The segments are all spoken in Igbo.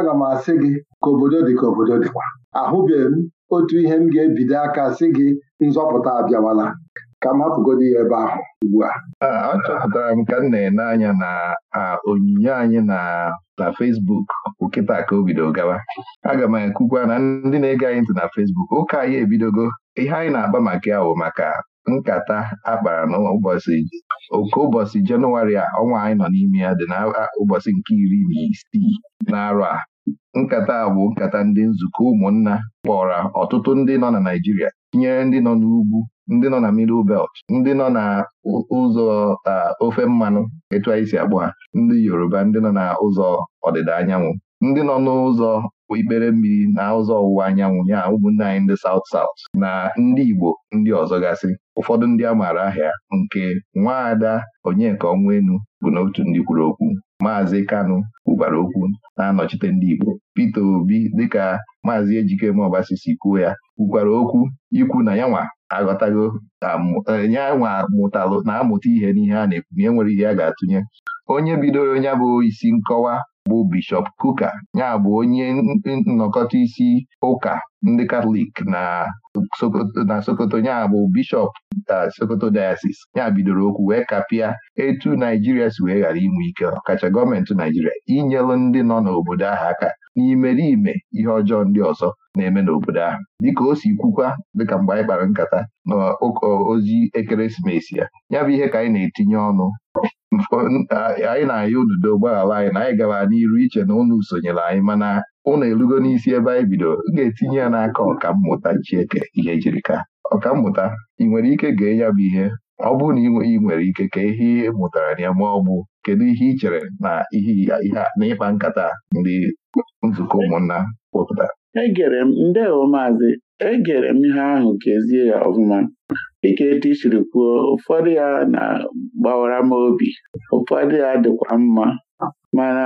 aga m asị gị ka obodo dị ka obodo dịkwa ahụbeghị m otu ihe m ga-ebido aka sị gị nzọpụta abịawala ka m hapụgodi ya ebe ahụ ugbu a achọpụtara m ka m na-ene anya na onyinye anyị na na Facebook ụkịta ka o gawa aga m ekwukwa na ndị na-ege anyị ntị na Facebook ụka anyị ebidogo ihe anyị na agba maka ya bụ maka nkata akpara n'ụbọchị oke ụbọchị jenụwarị a ọnwa anyị nọ n'ime ya dị na ụbọchị nke iri na isii na a nkata a bụ nkata ndị nzukọ ụmụnna kpọrọ ọtụtụ ndị nọ na Naịjirịa tinyere ndị nọ n'ugwu ndị nọ na middle belt ndị nọ na ụzọ ofe mmanụ etu anyị si akpọ ha ndị Yoruba ndị nọ na ụzọ ọdịda anyanwụ ndị nọ n'ụzọ ikpere mmiri na ụzọ ọwụwa anyanwụ ya ụmụnne anyị ndị South South na ndị Igbo ndị ọzọ gasị ụfọdụ ndị a maara ahịa nke nwaada Onyeka Onwenu bụ n'otu ndị kwuru okwu Maazị Kanụ kwubara okwu na-anọchite ndị Igbo pete Obi dịka Maazị ọbasi, si kwuo ya kwukwara okwu ikwu na yanwa aghọtago um, yanwa mụtalụ na-amụta ihe n'ihe a na-ekwu na enwere ihe a ga-atụnye onye bidoro onye bụ isi nkọwa bụ Bishọp Kuka ya bụ onye nnọkọta isi ụka ndị Katọlik na Sokoto ya bụ Bishọp e, Sokoto Diocese ya bidoro okwu wee kapịa etu Naijiria si wee ghara inwe ike ọkacha gọọmenti Naijiria inyelụ ndị nọ n'obodo ahụ aka n'imeriime ihe ọjọọ ndị ọzọ na-eme n'obodo ahụ dịka o si kwukwa dịka mgbe anyị kpara nkata n'ozi ekeresimesi ya ya bụ ihe ka anyị na-etinye ọnụ anyị na ahịa ududo gbaghara anyị na anyị gara n'iru iche na unu sonyere anyị mana ụnụ erugo n'isi ebe anyị bido ga-etinye ya n'aka ọkammụta Chieke ihe jirika ọkammụta ị nwere ike gee ya bụ ihe ọ bụrụ na ị nwere ike ka ihe ị mụtara na ya ma ọ bụ kedu ihe ị chere na ihe na ịkpa nkata ndị nzukọ ụmụnna kpọpụtara egere m ndewo maazị egere m ihe ahụ kezie ya ọfụma dịka etu i siri kwuo ụfọdụ ya na-gbawara m obi ụfọdụ ya dịkwa mma mana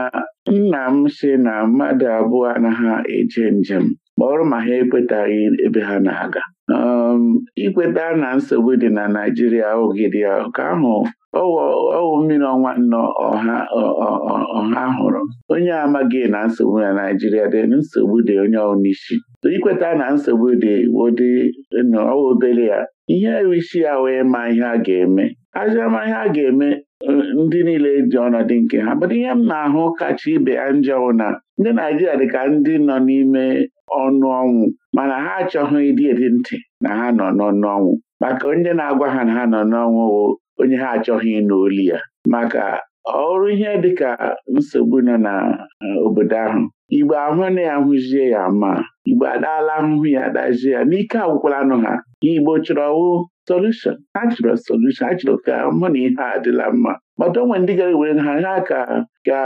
nna m si na mmadụ abụọ anaghị eje njem kpọrọ ma ha ekwetaghị ebe ha na-aga um, ikweta na nsogbu dị na Naijiria ogidi ka ahụ ọwụ mmiri ọnwa nnọọ ọha hụrụ onye amaghị na nsogbu na Naijiria dị nsogbu dị onye n'isi ikweta na nsogbu dị wodị ọwa obere ya ihe isi ya wee ma ihe a ga-eme ajama ihe a ga-eme uh, ndị niile dị ọnọdụ nke ha bụrụ ihe m na-ahụ kacha ibe ha njọwụ na ndị Naijiria dị ka ndị nọ n'ime ọnụ ọnwụ mana ha achọghị ịdị dị ntị na ha nọ n'ọnụ ọnwụ maka onye na-agwa ha na ha nọ n'ọnwụ onye ha achọghị ịnụ ya maka ọrụ ihe dịka nsogbu nọ na e, obodo ahụ igbo ahụ na ya hụzie ya ma igbo adaala ahụhụ ya dazie ya n'ike agwụkwala anụ ha igbo chọrọ wụ solushon ha chọrọ solushon ha chọrọ ka mụ na ihe a mma mata onwe ndị gara were ha ha ka ka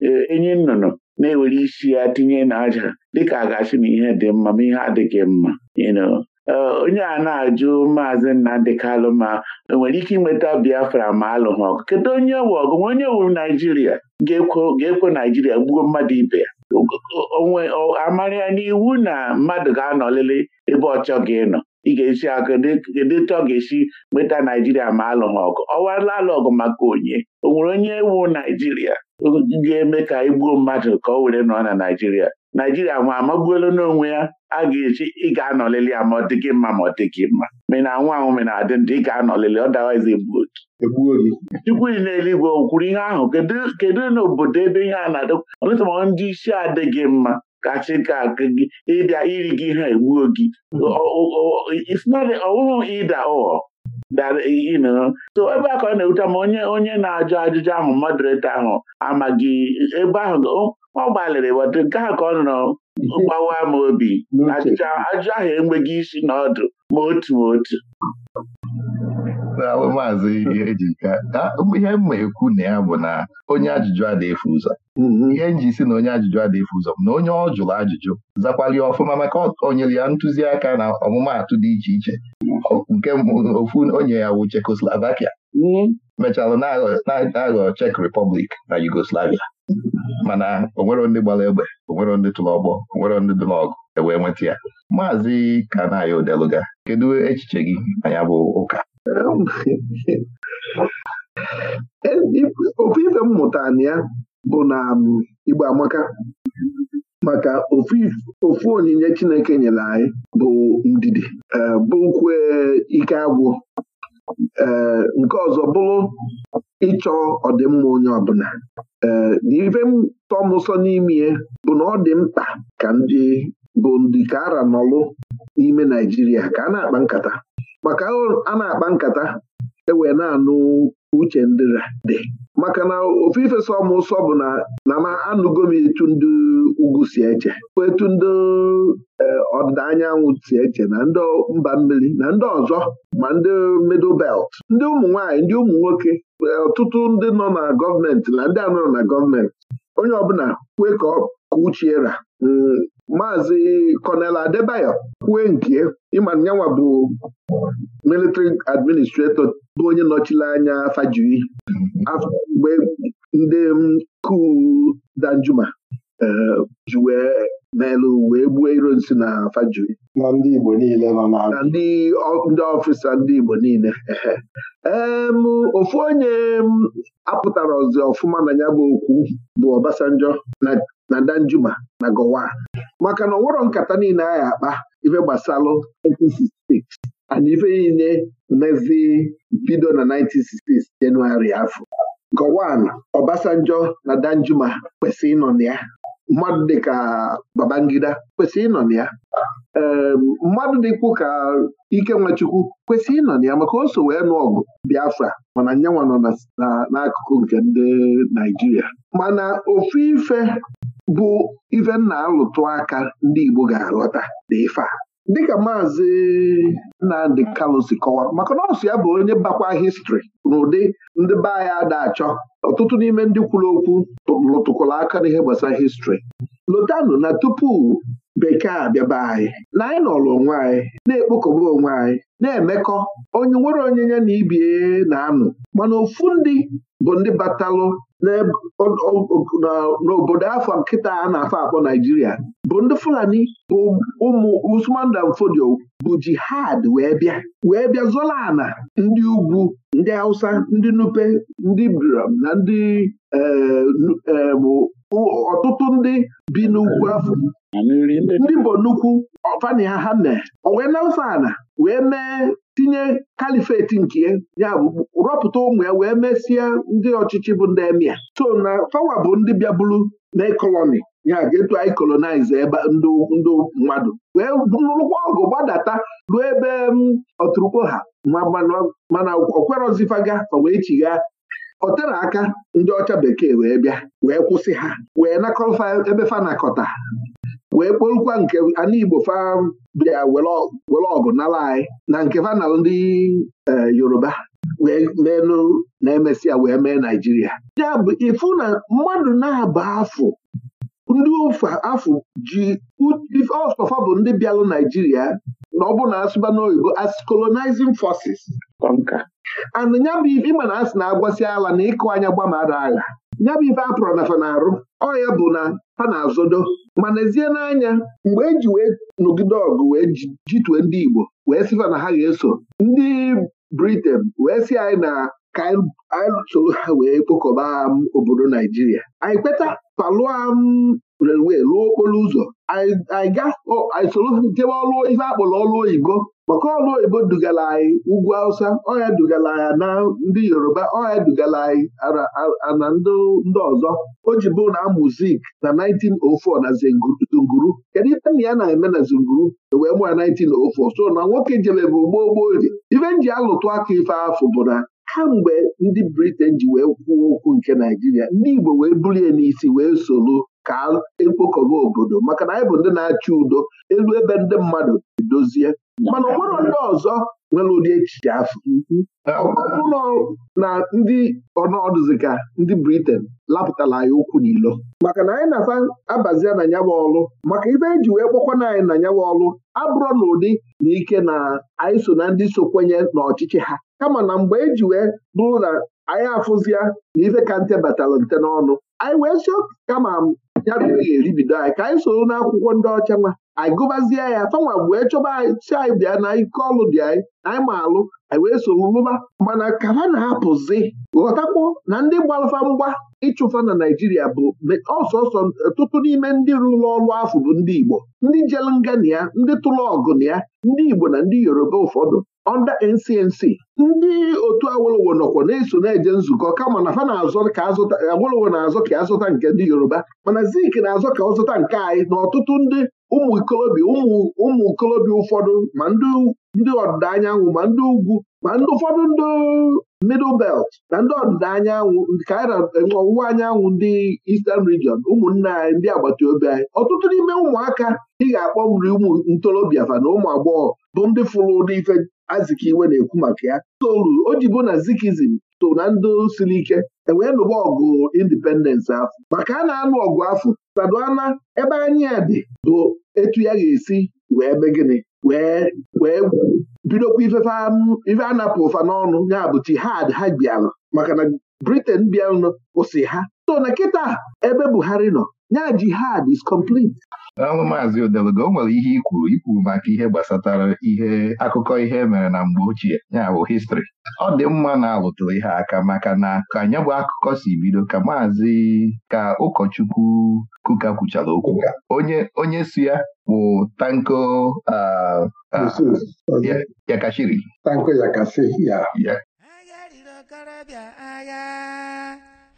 e, enyi nnụnụ na-ewere isi ya tinye n'aja dịka agachi na ihe dị mma ma ihe adịghị mma Eh, onye a na-ajụ maazị Nnamdị Kalụ ma nwere ike inweta Biafra ma alụghị ọgụ kedu onye wụ ọgụ onye wuru Naijiria ga-ekwe Naijiria gbuo mmadụ ibe ya amara ya n'iwu na mmadụ ga-anọlịrị ebe ọ chọghị ịnọ ị ga-esi aka kedu etu ga-esi nweta Naijiria ma alụghị ọgụ ọwala alụ ọgụ maka onye o nwere onye wu Naijiria ga-eme ka igbuo e mmadụ ka ọ were nọ na Naijiria naijiria nwa amagbuola n'onwe ya a ga-eji ị ga-anọlili ya ma ọ dịghị mma ma ọ dịghị mma mena nwa anwụ mena adị ndụ ị ga-anọlili ọdawazi egbuo e gị chukwu dị n'eluigwe o kwuru ihe ahụ kedu n'obodo ebe ihe a na-adị ọlụta ma ndị isi adịghị mma kachi ka gị ịbịa iri gị ha egbuo gị ọwụhụ ịda ụghọ so ebe a ka ọ na-ewuta ma onye onye na-ajụ ajụjụ ahụ moderator ahụ amaghị ebe ahụ ọ gbalịrị wọdụ nke a ka ọ nọ mgbawa m obi ajụjụ ahụ enweghị isi na ọdụ ma otu ma otu ihe mma ekwu na ya bụ na onye ajụjụ adịghị ụzọ mm-hmm. ihe nji si na onye ajụjụ adịghị ụzọ na onye ọ jụrụ ajụjụ zakwali ọfụma maka onyere ya ntụziaka na ọmụmaatụ dị iche iche nke ofu onye ya wu Czechoslovakia mm-hmm. mechara na-aghọ Czech Republic na Yugoslavia mana onwero ndị gbara egbe onwero ndị tụrụ ọgbọ onwero ndị dị n'ọgụ ewee nweta ya maazị Kanayo odeluga kedu echiche gị anya bụ ụka ofu ife mmụta na ya bụ na um, igba amaka maka ofu onyinye Chineke nyere anyị bụ ndidi um, bụrụkwa ike agwụ ee nke ọzọ bụrụ ịchọ ọdịmma onye ọbụla ee na ife m tọ bụ na ọ dị mkpa ka ndị bụ ndị ka ara nọlụ n'ime Naijiria ka a na-akpa nkata maka a na-akpa nkata ewee na-anụ uche ndị dị maka na ofu ifesa ụsọ bụ na na m anụgo m etu ndị ugwu si eche etu ndị e, ọdịda anyanwụ si eche na ndị mba mmiri na ndị ọzọ ma ndị middle belt ndị ụmụ nwanyị, ndị ụmụ nwoke e, ọtụtụ ndị nọ na gọọmenti na ndị anọ na gọọmenti onye ọbụla kwe ka uchiera maazị Kọnel Adebayo kwue nke ịma nyanwa bụ militri administrator bụ onye nọchiri anya Fajiri mgbe ndị kuu Danjuma eh, ji wee n'elu wee gbuo ironsi na Fajiri na ndị Igbo niile nọ na ndị ọfịsa ndị Igbo niile ofu onye apụtara ọzọ ọfụma na ya bụ okwu bụ Obasanjo na na Danjuma na Gowan maka na ọ nkata niile anyị akpa ife gbasalụ 1966 ana ife niile mezi bido na 1966 jenụwarị afọ Gowan Obasanjo na Danjuma kwesịrị ịnọ na ya mmadụ dịka Babangida kwesịrị ịnọ na ya mmadụ dịkwu ka Ike Nwachukwu kwesịrị ịnọ na ya maka oso wee nụ ọgụ Biafra mana nyanwa nọ n'akụkụ nke ndị Naijiria mana ofu ife bụ ife nna alụtụ aka ndị Igbo ga alọta dị dịka maazị Nnamdị Kalụ si kọwara maka nọọsụ ya bụ onye bakwa histri n'ụdị ndị be anyị ada achọ ọtụtụ n'ime ndị kwuru okwu lụtụkwara aka n'ihe gbasara histri lotanụ na tupu bekee abịaba anyị na anyị nọrọ onwe anyị na-ekpokọba onwe anyị na-emekọ onye nwere onyinye na ibie na-anụ mana ofu ndị bụ ndị batalụ n'obodo afọ nkịta a na-afọ akpọ Naijiria bụ ndị Fulani bụ ụmụ Usman Dan Fodio bụ jihad wee bịa wee bịa zola ana ndị ugwu ndị Hausa ndị Nupe ndị Biram na ndị eh, eh, bụ ọtụtụ ndị bi n'ugwu afọ ndị bụ nnukwu ọfani ha ha mee owee na-asa ana wee mee tinye kalifeti nke ya bụ rọpụta ụmụ ya wee mesịa ndị ọchịchị bụ ndị emia so na fawa bụ ndị bịaburu na koloni ya ga-etu anyị kolonaize ebe ndị mmadụ wee rụkwa ọgụ gbadata ruo ebe ọtụrụkpo ha mana okwerọzifaga fa wee chigha ọ tere aka ndị ọcha bekee wee bịa wee kwụsị ha wee nakọfa ebe fanakọta wee kpolukwa nke ana Igbo fa bịa were ọgụ nala anyị na nke fa ndị e, Yoruba wee menụ na emesịa wee mee Naijiria ya bụ ịfụ na mmadụ na-aba afọ ndị ofe afọ ji ọsọfa bụ ndị bịalụ naijiria na ọ bụ na asụba n'oyibo as colonizing forces and ya bụ ife ịma na asị na-agbasi ala na ịkụ anya gbamara agha ya bụ ife apụrụ na fanarụ ọ ya bụ na ha na-azodo ma nezie n'anya mgbe eji wee nọgide ọgụ wee jitue ndị Igbo wee sịfa na ha ga-eso ndị Britain wee si anyị na ka um, anyị soro ha wee kpokọba obodo naijiria anyị kpeta palụa um, relwe lụọ okporo ụzọ anyị soro jebe ọlụ ife akpọrọ ọlụ oyibo maka ọlụ oyibo dugara anyị ugwu awụsa ọya dugara anyị na ndị yoruba ọya dugara anyị ana ndị ọzọ o ji bụ na muzik na 1904 na zunguru kedu ihe nna ya na-eme na zunguru e wee mụ ya 1904 so na nwoke jebe bụ gboo gboo ife m ji alụtụ aka ife afọ bụ na kamgbe ndị Britain ji wee kwuo okwu nke Naijiria ndị Igbo wee bulie n'isi wee soro ka ekpokọba obodo maka na anyị bụ ndị na achị udo elu ebe ndị mmadụ edozie mana ọ ndị ọzọ nwere ụdị echiche afọ ọbụrụ na ndị ọnọdụziga ndị Briten lapụtara anyị ụkwụ n'ilo maka na anyị na-asa abazia na nyawa ọlụ maka ibe eji wee kpọkwana anyị na nyawa ọlụ abụrọ na ụdị na ike na anyị so na ndị so kwenye n'ọchịchị ha kama na mgbe eji wee bụrụ na anyị afụzia na ife ka nte batalụ nte n'ọnụ anyị wee sio oh, kama ya bụ ihe eribido anyị ka anyị soro n'akwụkwọ ndị ọcha nwa anyị gụbazie ya fanwa wee chọba si anyị bịa na ike ọlụ dị anyị anyị ma alụ anyị wee soro lụba mana ka ha na-apụzi ghọtakwuo na ndị gbalụfa mgba ịchụfa na Naijiria bụ ọsọsọ ọtụtụ n'ime ndị rụrụ ọrụ afọ bụ ndị Igbo ndị jelu ngana ya ndị tụrụ ọgụ na ya ndị Igbo na ndị Yoruba ụfọdụ ọnda NCNC ndị otu Awolowo nọkwa na-eso na-eje nzukọ kama na fa na-azọ ka azụta Awolowo na-azọ ka azụta nke ndị Yoruba mana Zik na-azọ ka ọ zụta nke anyị na ọtụtụ ndị ụmụ ikolobịa ụmụ ikolobịa ụfọdụ ma ndị ọdịda anyanwụ ma ndị ugwu ma ndị ụfọdụ ndị middle belt na ndị ọdịda anyanwụ ka anyị na ọwụwa anyanwụ ndị Eastern region ụmụnna anyị ndị agbata obi anyị ọtụtụ n'ime ụmụaka ị ga-akpọ nri ụmụ ntorobịa fa na ụmụ agbọghọ bụ ndị fụrụ ụdị ife Azikiwe na-ekwu maka ya toru o jibu na zikizim so na ndị siri ike ewee nụba ọgụ indipendensị afọ maka a na-anụ ọgụ afọ saduana ebe anyị dị bụ etu ya ga-esi wee be gịnị wee wee bidokwa ife anapụ ụfa n'ọnụ ya bụ jihad ha bịara maka na Britain bịanụ kwụsị ha so na kịta ebe Buhari nọ ya jihad is complete. Daalụ Maazị Odelogo, o nwere ihe ikwuru ikwuru maka ihe gbasatara ihe akụkọ ihe e mere na mgbe ochie ya bụ histrị ọ dị mma na alụtụrụ ihe aka maka na ka anya bụ akụkọ si bido ka maazị ka ụkọchukwu kuka kwuchara okwu onye onye ya bụ tanko yakashiri tanko ya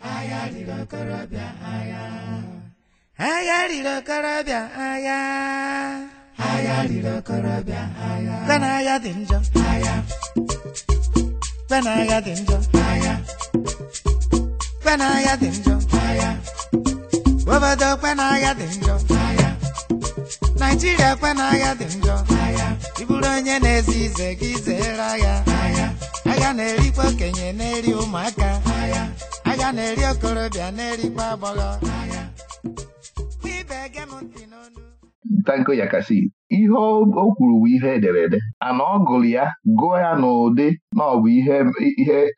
agha riri okorobịa agha agha riri okorobịa agha agha riri okorobịa agha bena dị njọ agha bena agha dị njọ agha bena agha dị njọ agha obodo kwena agha dị njọ agha naijiria kwena agha dị njọ agha ịbụrụ onye na-ezi ize gị zere agha agha na-erikwa okenye na-eri ụmụaka agha okorobịa na-eri okorobịa na agbọghọ ntanko ya kasị ihe o kwuru bụ ihe ederede ana ọ gụrụ ya gụọ ya n'ụdị na ọ bụ ihe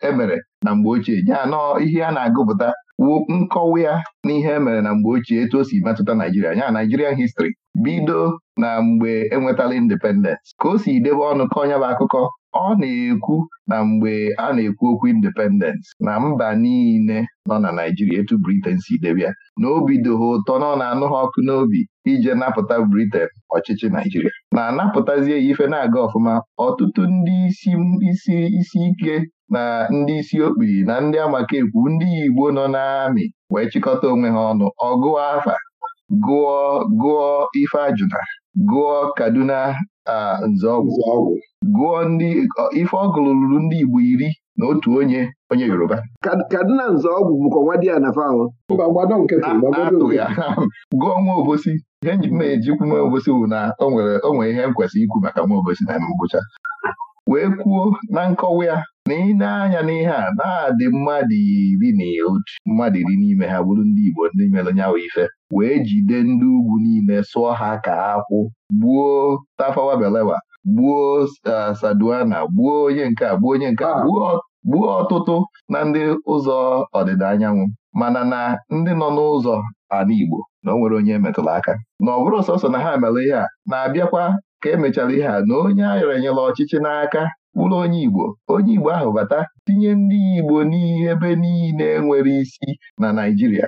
emere e na mgbe ochie ya nọọ ihe a na-agụpụta wuo nkọwa ya na ihe emere na mgbe ochie etu o si metụta Naijiria ya Naijirian histri bido na mgbe enwetala independence ka o si debe ọnụ ka ọnya bụ akụkọ ọ na-ekwu na mgbe a na-ekwu okwu independence na mba niile nọ na Naijiria etu Britain si debia na obi doha ụtọ na ọ na-anụ ha ọkụ n'obi ije napụta Britain ọchịchị Naijiria na-anapụtazie ya ife na-aga ọfụma ọtụtụ ndị isi isi isi ike na ndị isi okpi na ndị amakaekwu ndị Igbo nọ n'amị wee chịkọta onwe ha ọnụ ọgụọ afa gụọ gụọ ife ajụna gụọ Kaduna Ah, nzọọgwụ gụọ ndị ife ọgụlụ ruru ndị Igbo iri na otu onye onye Yoruba kadịna nzọọgwụ bụkwa nwa di ya na ah, atụ fahụ gụọ nwa obosi ihe nji m na-ejikwu nwa obosi bụ na o nwere ihe m kwesịrị ikwu maka nwa obosi na ngwụcha wee kwuo na nkọwa ya na ị na-anya n'ihe a na-adị mmadụ iri na otu mmadụ iri n'ime ha bụrụ ndị Igbo ndị mere nyawa ife wee jide ndị ugwu niile sụọ ha ka akwụ gbuo Tafawa Balewa gbuo e, Saduana gbuo onye nke a gbuo onye nke gbuo gbuo ọtụtụ na ndị ụzọ ọdịda anyanwụ mana na ndị nọ n'ụzọ ala Igbo na o nwere onye metụrụ aka na ọ bụrụ sọsọ na ha mere ihe a na-abịakwa ka emechara ihe a na onye ayọrọ enyela ọchịchị n'aka bụrụ onye Igbo onye Igbo ahụ bata tinye ndị Igbo ebe niile nwere isi na naijiria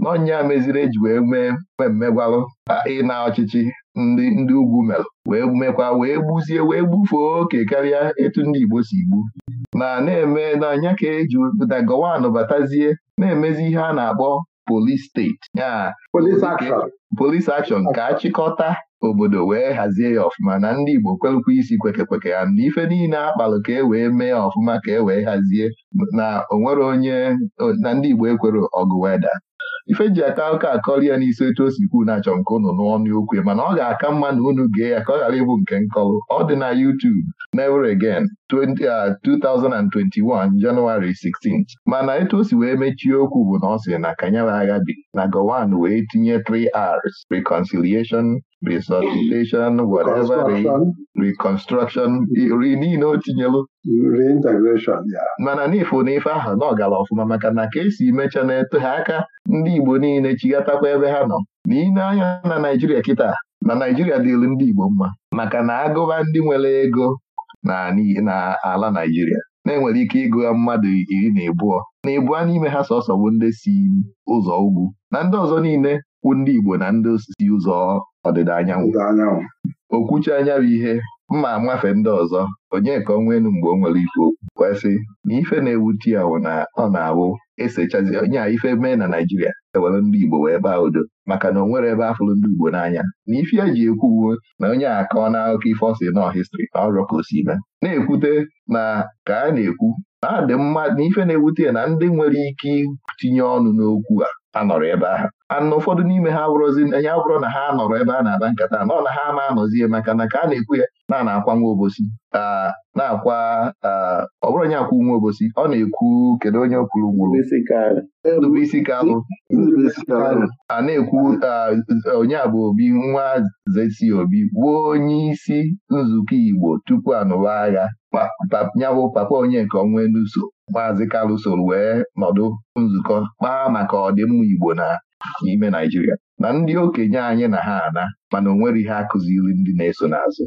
n'ọnya meziri eji wee mee mmemme gwarụ ịna ọchịchị ndị ugwu merụ wee mekwa wee gbuzie wee gbufee oke karịa etu ndị Igbo si gbu na na-eme n'anya ka eji na gọwanụ batazie na-emezi ihe a na-akpọ polis steeti ya polis akshọn ka achịkọta obodo wee hazie ya ọfụma na ndị Igbo kwelụkwa isi kweke kweke ha na ife niile akpalụ ka e wee mee ya ọfụma ka e wee hazie na onwere onye na ndị Igbo ekwere ọgụ weda ife ji aka ụka akọrọ ya n'isi otu o si na-achọ nke unu n'ọnụ okwu mana ọ ga-aka mma na unu gee ya ka ọ ghara ịbụ nke nkọlụ ọ dị na YouTube never again 2021 Janụwarị 16 mana etu o wee mechie okwu bụ na ọ sị na kanyere na Gowan wee tinye 3Rs reconciliation resuscitation whatever reconstruction ri niile o tinyelu mana n'ifo na ife ahụ na ọ ọfụma maka na ka esi mecha na-eto ha aka ndị Igbo niile chighatakwa ebe ha nọ na anya na Naijiria kịta na Naijiria dịlu ndị Igbo mma maka na agụba ndị nwere ego na ala Naịjirịa na-enwere ike ịgụ ya mmadụ iri na ịbụọ na ịbụọ n'ime ha sọsọ bụ ndị si ụzọ ugwu na ndị ọzọ niile kwụ ndị Igbo na ndị osisi ụzọ ọdịda anyanwụ okwuchi anya bụ ihe mma amafe ndị ọzọ onye ka ọ mgbe o nwere ife okwu kwesị na ife na-ewute ya wụ na ọ na-awụ esechazi onye a ife mee na Naijiria ewere ndị Igbo wee baa udo maka na o nwere ebe afụrụ ndị Igbo n'anya na ife eji uwe na onye a akọ n'akụkọ ife ọsị nọ histri na ọrụ ka o si mee na-ekwute na ka a na-ekwu na adị mma na ife na-ewute ya na ndị nwere ike itinye ọnụ n'okwu a anọrọ ebe ahụ ana ụfọdụ n'ime ha abụrụzi ya bụrụ na ha nọrọ ebe a na-ada nkata nọ na ha ama anọzie maka na ka a na-ekwu ya na na-akwa nwa obosi na-akwa ọ bụrụ onye akwụ nwa obosi ọ na-ekwu kedu onye kwuru nwụrụ Ndubuisi Kalụ a na-ekwu onye a bụ obi nwa zesi obi wuo onye isi nzukọ Igbo tupu anụwa agha nyabụ papa onye nke ọnwa n'uso maazị Kalụ wee nọdụ nzukọ kpaa maka ọdịmma Igbo na n'ime Naijiria na ndị okenye anyị na ha ana mana onwere ihe akụziri ndị na-eso n'azụ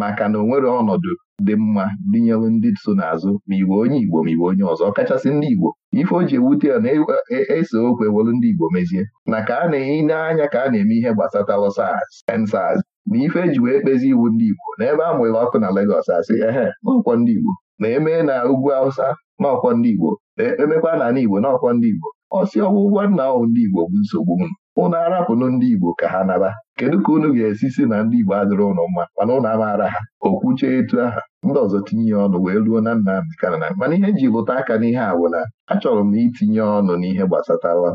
maka na onwere ọnọdụ dị mma dinyelu ndị so n'azụ ma igbo onye Igbo ma igbo onye ọzọ ọkachasị ndị Igbo ife o ji ewute ya na-ese e, e, okwu ewelu ndị Igbo mezie na ka a na-eyi n'anya ka a na-eme ihe gbasatalụ SARS EndSARS na ife eji wee kpezi iwu ndị Igbo n'ebe a mụrụ ọkụ na Legọs asị ehe n'ụkwọ ndị Igbo na emee na ugwu awụsa n'ọkwọ ndị Igbo na emekwa na ala Igbo n'ọkwọ ndị Igbo ọsị ọgwụ ụgwọ nna ahụ ndị Igbo bụ nsogbu unu ụnụ arapụnụ ndị Igbo ka ha naba kedu ka unu ga-esi si na ndị Igbo adịrị ụnụ mma mana ụnụ amaara ha okwuche etu aha ndị ọzọ tinye ya ọnụ wee ruo na nna na mana ihe ji lụta aka n'ihe a bụ na achọrọ m itinye ọnụ n'ihe gbasatara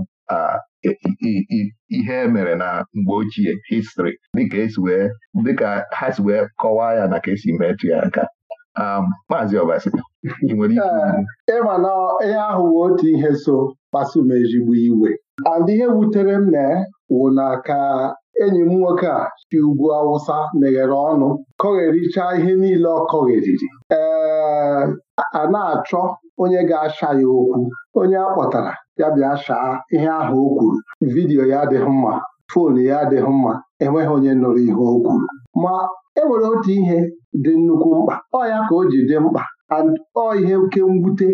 ihe emere na mgbe ochie histri dịka ha si wee kọwaa ya na ka esi metụ ya aka Um, Maazị Obasi ị nwere ike eh, ịma na ihe ahụ wụ otu ihe so kpasum ezigbo iwe and ihe wutere m na wụ na ka enyi m nwoke a si ugwu awụsa meghere ọnụ kọghericha ihe niile ọ kọgheriri ee eh, a na-achọ onye ga-asha ya okwu onye a kpọtara ya bịa shaa ihe ahụ o kwuru vidiyo ya adịghị mma foonu ya adịghị mma enweghị onye nụrụ ihe o kwuru ma e nwere otu ihe dị nnukwu mkpa ọ ya ka o ji dị mkpa ọ ihe oke mwute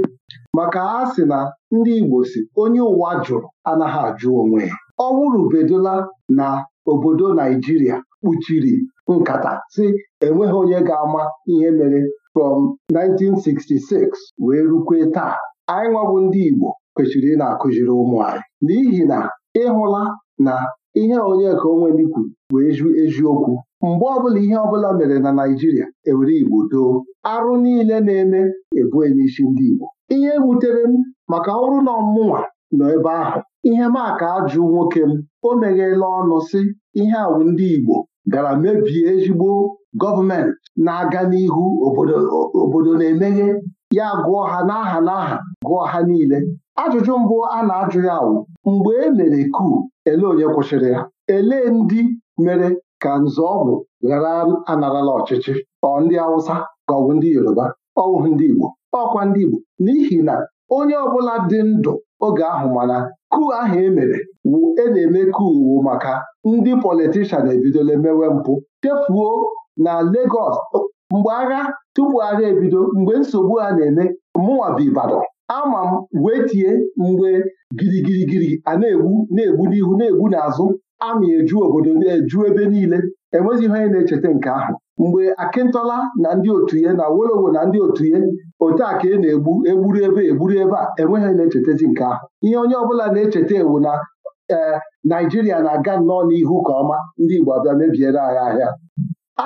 maka a sị na ndị Igbo si onye ụwa jụrụ anaghị ajụ onwe ya ọ na obodo Naijiria kpuchiri nkata si enweghị onye ga-ama ihe mere from 1966 wee rukwe taa anyị nwabụ ndị Igbo kwesịrị na-akụziri ụmụ n'ihi na ịhụla na ihe onye ka onweli kwuru bụ eziokwu mgbe ọbụla ihe ọbụla mere na Naịjirịa ewere Igbo doo arụ niile na-eme ebue n'isi ndị Igbo ihe wutere e m maka ọrụ na ọmụnwa nọ ebe ahụ ihe maka ajụ nwoke m o meghela ọnụ sị ihe awụ ndị Igbo gara mebie ezigbo gọọmenti na-aga n'ihu obodo na-emeghe ya gụọ ha n'aha n'aha gụọ ha niile Ajụjụ mbụ a na-ajụ ya wụ mgbe e mere kuu ele onye kwụsịrị ya elee ndị mere ka Nzọọgwụ ghara anarala ọchịchị ọ ndị Awụsa ka ọ bụ ndị Yoruba ọ ndị Igbo ọkwa ndị Igbo n'ihi na onye ọbụla dị ndụ oge ahụ mana kuu ahụ e mere wụ e na-eme kuu wụ maka ndị politishan ebidola mewe mpụ chefuo na legos mgbe agha tupu agha ebido mgbe nsogbu a na-eme mụnwa bụ Ibadan ama m wee tie mgbe girigirigiri a na-egbu na-egbu n'ihu na-egbu n'azụ ama eju obodo na-eju ebe niile enweghị ihe na-echeta nke ahụ mgbe akịntọla na ndị otu ya na wolowo na ndị otu ya otu a ka ị e na-egbu egburu ebe egburu ebe a enweghị anyị na-echetazi nke ahụ ihe onye ọbụla na-echeta ewu na ee naijiria na-aga nnọọ n'ihu ka ọma ndị igbo abịa mebiere anyị ahịa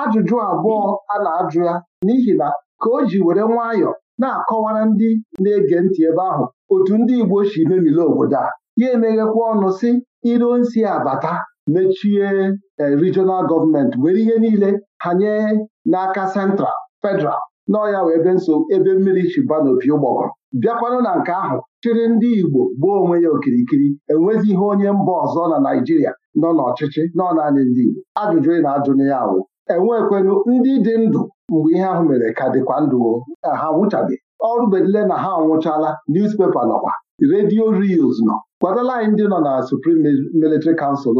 ajụjụ abụọ a na-ajụ ya n'ihi na ka o ji were nwayọọ na-akọwara ndị na-ege ntị ebe ahụ otu ndị Igbo si memile obodo a ya emeghekwa ọnụ si iro nsi abata mechie e, regional gọọmenti were ihe niile ha nye n'aka sentral federal n'ọya wee be nso ebe mmiri chiba n'opi ụgbọgọ bịakwanụ na nke ahụ chịrị ndị Igbo gbuo onwe ya okirikiri enwezi ihe onye mba ọzọ na Naịjirịa nọ n'ọchịchị nọ naanị ndị Igbo ajụjụ ị na-ajụ na ya awụ enwekwenụ ndị dị ndụ mgbe ihe ahụ mere ka dịkwa ndụ ha nwụchabeghị ọrụ bedile na ha anwụchala newspaper nọkwa redio reels nọ kwadala anyị ndị nọ na Supreme Military Council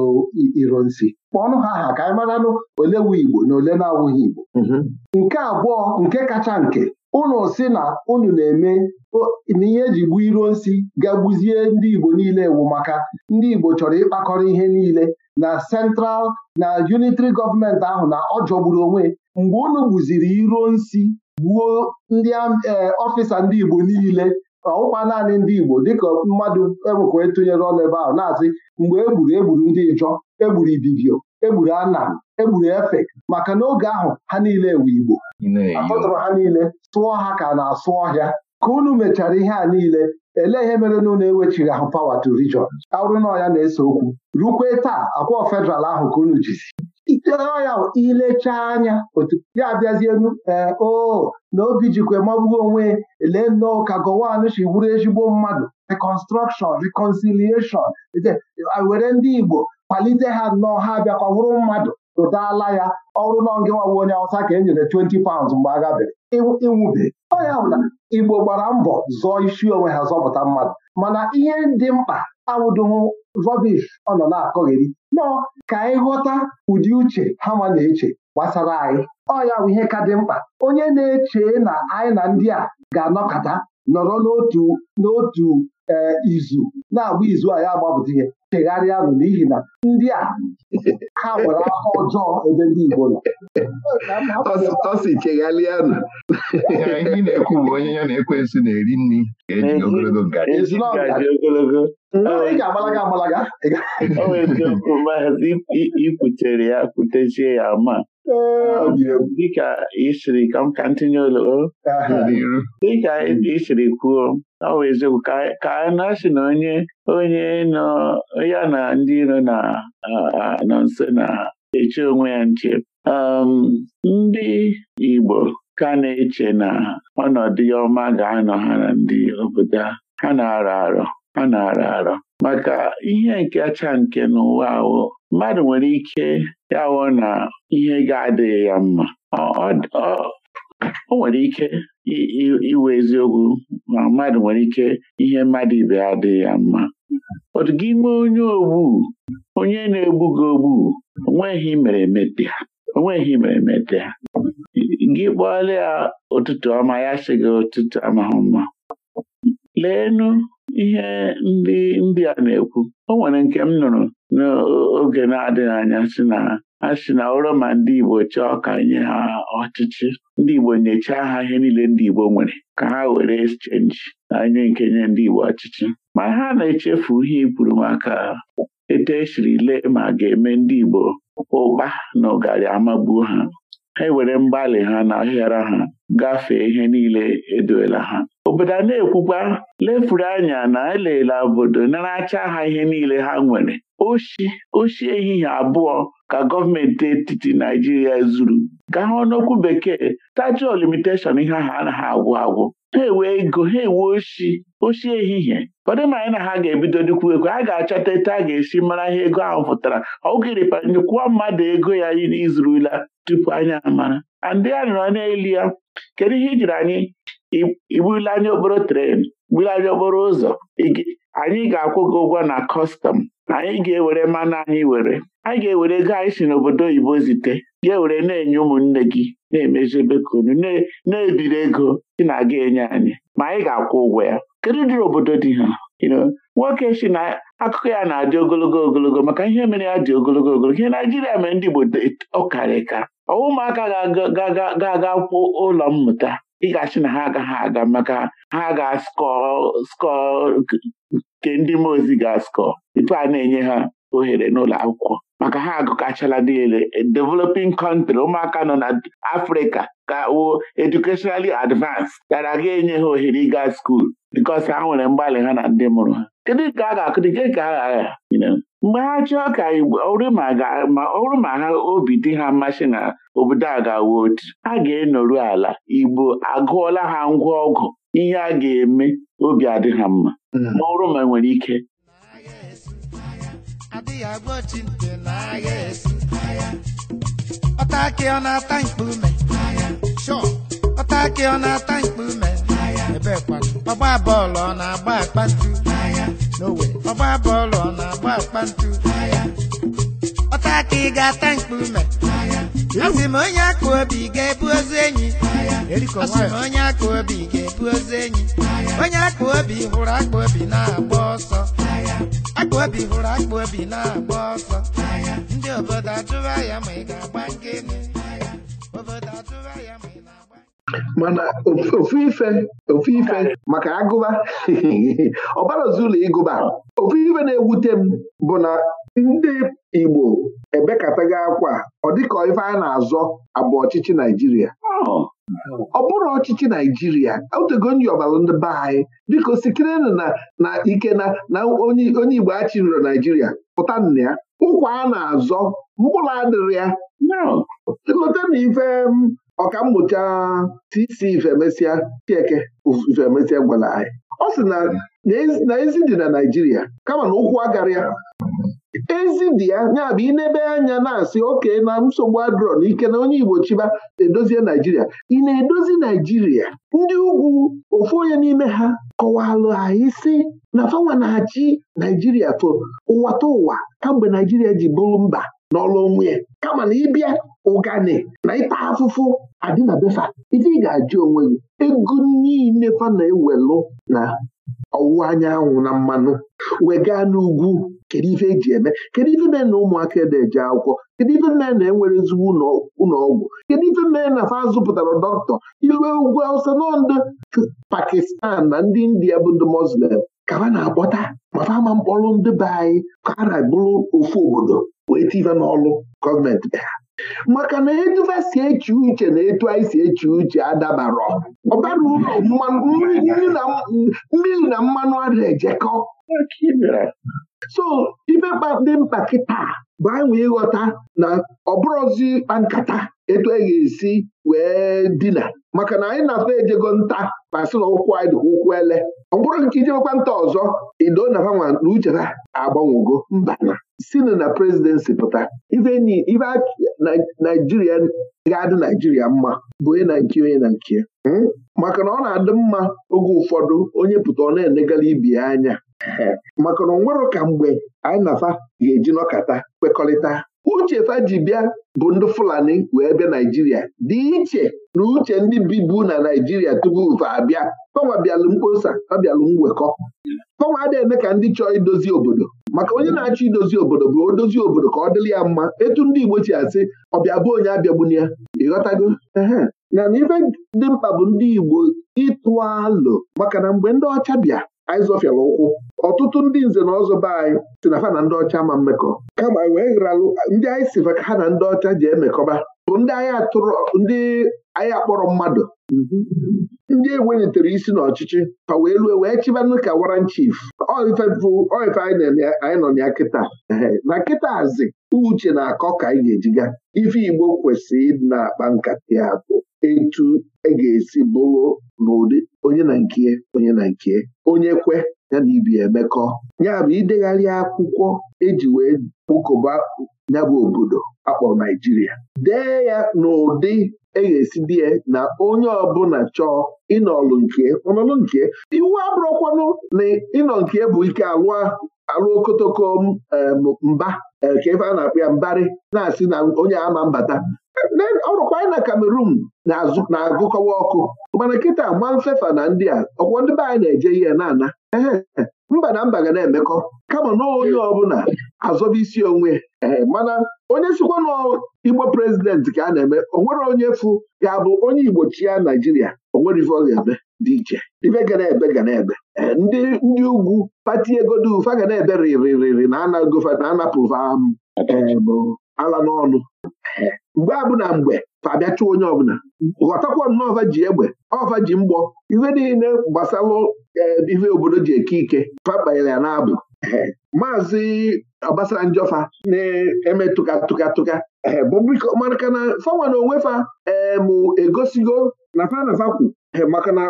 Ironsi kpọọnụ ha aha ka anyị maranụ ole wu Igbo na ole na-awụghị Igbo mhm. nke abụọ nke kacha nke ụnụ si na unu na-eme na ihe eji gbuo Ironsi ga gbuzie ndị Igbo niile ewu maka ndị Igbo chọrọ ịkpakọrọ ihe niile na central na unitary gọọmenti ahụ na ọ jọgburu onwe mgbe unu gbuziri iro nsi gbuo ndị ọfịsa eh, ndị Igbo niile ọwụkwa naanị ndị Igbo dịka mmadụ enwekọ etụnyere ọnụ ebe ahụ na-asị mgbe egburu egburu ndị njọ egburu Ibibio egburu Anam egburu Efek maka na oge ahụ ha niile ewu Igbo akpọtụrụ ha niile tụọ ha ka na-asụ ọhịa ka unu mechara ihe a niile elee ihe mere na ụlọ ewechighị ahụ pawa to region arụ na ọya na-ese okwu rukwe taa akwụọ federal ahụ ka unu jizi iteọya ilechaa anya otu ya abịazienu ee eh, o oh, na obi jikwa magbuo onwe lee nnọọ ka Gowon si bụrụ ezigbo mmadụ reconstruction reconciliation were ndị Igbo kwalite ha nnọọ ha ọ bụrụ mmadụ tụtaala ya ọrụ nọ onye awụsa ka e nyere 20 paụnds mgbe a gabere ịnwụbe ọ ya bụ na Igbo gbara mbọ zọọ isi onwe ha zọpụta mmadụ mana ihe dị mkpa awụdohụ rọbish ọ nọ na-akọgheri nọ ka anyị ghọta ụdị uche ha ma na-eche gbasara anyị ọya ya bụ ihe ka dị mkpa onye na-eche na anyị na ndị a ga-anọkọta nọrọ n'otu n'otu eh, izu na-agba izu a ya agbapụta ihe chegharịanụ n'ihi na ndị a ha nwere aka ọjọọ ebe ndị Igbo nọ ọ sị chegharịanụ ihe na-ekwu bụ onye ya na-ekwensu na-eri nri ga-eji ogologo ngaji ị ga-agbalaga agbalaga o nwere eziokwu maazị ikwutere ya kwutechie ya ma ọ dịka isiri ka m ka ntinye oloo dịka isiri kwuo ọ bụ eziokwu ka a na-asị na onye onye nọ ya na ndị iro na nso na-eche onwe ya nche ndị Igbo ka na-eche na ọnọdụ ọma ga-anọ ha na ndị obodo ha na-arọ arọ ha na-arọ arọ maka ihe nke na nke n'ụwa ahụ mmadụ nwere ike ya na ihe ga-adịghị ya mma o nwere ike iwe eziokwu ma mmadụ nwere ike ihe mmadụ ibe adịghị ya mma otu gị nwee onye ogbu onye na-egbu gị ogbu onweghị mere emete onweghị mere emete gị kpọọla ya ụtụtụ ọma ya sị gị ụtụtụ amaghị mma leenụ ihe ndị ndị a na-ekwu o nwere nke m nụrụ n'oge na-adịghị anya si na ha si na ụrọ ma ndị Igbo chọọ ka nye ha ọchịchị ndị Igbo nyechaa ha ihe niile ndị Igbo nwere ka ha were chenji na nye nke nye ndị Igbo ọchịchị ma ha na-echefu ihe ikwuru maka etu esiri lee ma ga-eme ndị Igbo ụkpa na ụgarị amagbuo ha ha ewere mgbalị ha na ahịara ha gafee ihe niile edoela ha obodo a na-ekwukwa lefuru anya na elela obodo naracha ha ihe niile ha nwere oshi ehihie abụọ ka gọọmenti etiti Naijiria zuru gaa n'okwu bekee tajụọ limitation ihe ahụ anaghị agwụ agwụ ha enwe ego ha ewe oshi oshi ehihie ụfọdụ ma anyị na ha ga-ebido dịkwu ego a ga-achọta etu a ga-esi mara ihe ego ahụ pụtara ọ gịrịpa nyekwa mmadụ ego ya izurula tupu anyị amara ndị ya nọ n'elu ya kedu ihe ijiri anyị igbuli anyị obere tren gbuli anyị obere ụzọ anyị ga-akwụ gị ụgwọ na kọstọm anyị ga-ewere mmanụ anyị were anyị ga-ewere ego anyị si n'obodo oyibo zite ga-ewere na-enye ụmụnne gị na-emezi bekunu na-ebiri ego ị na-aga enye anyị ma anyị ga-akwụ ụgwọ ya kedu dịrị obodo dị ha nwoke si na akụkọ ya na-adị ogologo ogologo maka ihe mere ya dị ogologo ogologo ihe Naijiria mere ndị Igbo ọkarịka ọwụ ụmụaka ga-aga kwụ ụlọ mmụta ị na ha agaghị aga maka ha ga skọ nke ndị mozi ga-askọ tupu a na-enye ha ohere n'ụlọ akwụkwọ maka ha agụkachala niile developing country ụmụaka nọ na Afrịka ka wo educationally advanced gara aga enye ha ohere ịga skuul because ha nwere mgbalị ha na ndị mụrụ ha kedu ka a ga-akụdike ka a agha mgbe ha chọọ ka ọrụ ma ha obi dị ha mmasị na obodo a ga otu ha ga-enoru ala Igbo agụọla ha ngwa ọgụ ihe a ga-eme obi adị ha mma ọrụ hmm. ma nwere ike adịghị agwọchi nte na agha esi ọta akị ọ na-ata mkpume ọta akị ọ na-ata mkpume ebe kwado ọgba bọọlụ ọ na-agba akpa n'owe ọgba bọọlụ ọ na-agba akpa ntu ọta ga-ata mkpume Asị m onye aka obi ga-ebu ozu enyi Esi m onye aka obi ga-ebu ozu enyi Onye aka obi hụrụ aka obi na-agba ọsọ Aka obi hụrụ aka obi na-agba ọsọ Ndị obodo ajụwa ya ma ị ga-agba nke Obodo ajụwa ya ma mana ofu ife ofu ife maka agụba ọbarazi ụlọ ịgụba ofu ife na-ewute m bụ na ndị Igbo ebekataghị akwa ọ dịka ife a na-azọ abụ ọchịchị Naijiria ọ bụrụ ọchịchị Naijiria otego nyi ọbara ndị be anyị biko sikirenụ na ike na onye Igbo achịrịrị Naijiria pụta nna ya ụkwa a na-azọ mkpụrụ adịrị ya lọta ife ọkammụta tc ifemesịa chieke ifemesịa gwara anyị ọ sị na ezi dị na Naijiria kama na ụkwụ agarịa ezi dị ya ya na ebe anya na-asị oke na nsogbu adrọ na ike na onye Igbo chiba edozie Naijiria ị na-edozi Naijiria ndị ugwu ofu onye n'ime ha kọwalụ anyị sị na fanwa na-achị Naijiria fo ụwa ta ụwa kamgbe Naijiria ji bụrụ mba n'ọlụ onwe ya kama na ịbịa ụgani na ịta afụfụ adị na befa ife ị ga-ajụ onwe gị ego niile fa na-ewelụ na ọwụwa anyanwụ na mmanụ wega n'ugwu kedu ife eji eme kedu ife mee na ụmụaka na eje akwụkwọ kedu ife mee na enwere ezigbo ụlọọgwụ kedu ife mee na fa zụpụtara dọkịta ilue ugwu awụsa nọ Pakistan na ndị India bụ ndị Muslim ka ha na-akpọta ma fa ama mkpọrụ ndị be anyị ka ha na ofu obodo wee tiva n'ọlụ gọọmenti be ha maka na eduva si eche uche na etu anyị si eche uche adabarọ ọbara ụlọ mmiri na mmanụ ara ejekọ so ibe dị mkpa kịta bụ anyị wee ịghọta na ọbụrụzi ịkpa nkata etu anyị ga-esi wee dina maka na anyị na-afọ ejego nta ma sị na ụkwụ anyị ụkwụ ele ọ bụrụ nke ijemekwa nta ọzọ ido na uche ha agbanwego mba sinụ na prezidensi pụta ife naijiria ga-adị naijiria mma bụ onye na nke onye na nke hmm? maka na ọ na-adị mma oge ụfọdụ onye pụta ọ na-enegala ibi ya anya maka na ọ ka mgbe anyị nafa ga-eji nọkata kwekọrịta uche fa ji bịa bụ ndị Fulani wee bịa Naijiria dị iche na uche ndị bibu na Naijiria tupu ụfa abịa fanwa bịalụ mkposa ọ bịalụ mwekọ fanwa adịghị eme ka ndị chọọ idozi obodo maka onye na-achọ idozi obodo bụ odozi obodo ka ọ dịrị ya mma etu ndị Igbo si asị ọbịa bụ onye abịagbuni ya ịghọtago na ife dị mkpa bụ ndị Igbo ịtụ alụ maka na mgbe ndị ọcha bịa anyị zọfịara ụkwụ ọtụtụ ndị nze na ọzọ be anyị si na fa na ndị ọcha ma mmekọ kama wee ghịralụ ndị anyị si ka ha na ndị ọcha ji emekọba bụ ndị agha tụrụ ndị agha kpọrọ mmadụ ndị enwenyetere isi n'ọchịchị ka wee lue wee chibanụ ka waran chief oifebụ oife anyị nọ ya kịta na kịta azị uche na-akọ ka anyị ga-ejiga ife Igbo kwesịrị ịdị na-akpa nkata ya bụ etu e ga-esi bụrụ n'ụdị onye na nke onye na nke onye kwe ya na ibi emekọ ya bụ idegharị akwụkwọ eji wee kpụkọba ya bụ obodo akpọrọ Naijiria dee ya n'ụdị e ga-esi ya na onye ọbụla chọọ ịnọlụ nke ọnọlụ nke iwu abụrụkwanụ na ịnọ nke bụ ike alụ okotoko mba eh, ka ebe a na akpịa ya mbarị na-asị na onye ama mbata ọ anyị na kamerun na-agụkọwa ọkụ mana kịta ma mfefa na ndị a ọkwọ ndị be anyị na-eje ihe na-ana mba na mba ga na-emekọ kama na onye ọbụla azọba isi onwe eh, mana onye sikwa na igbo prezidenti ka a na-eme onwere onye fụ ga-abụ onye igbo chia naijiria onwere ife ọ ga dị iche ife ga na-ebe ga na-ebe eh, ndị ugwu pati egodu ufa ga na-ebe riri na na ala n'ọnụ mgbe abụna mgbe fa chụọ onye ọbụla ghọtakwa nnọọva ji egbe ọva ji mgbọ ife niile gbasalụ ife obodo ji eke ike papanyere ya n'abụ maazị Njọfa na-eme tụka tụka tụka maka na fanwa na onwe fa em egosigo na fa na maka na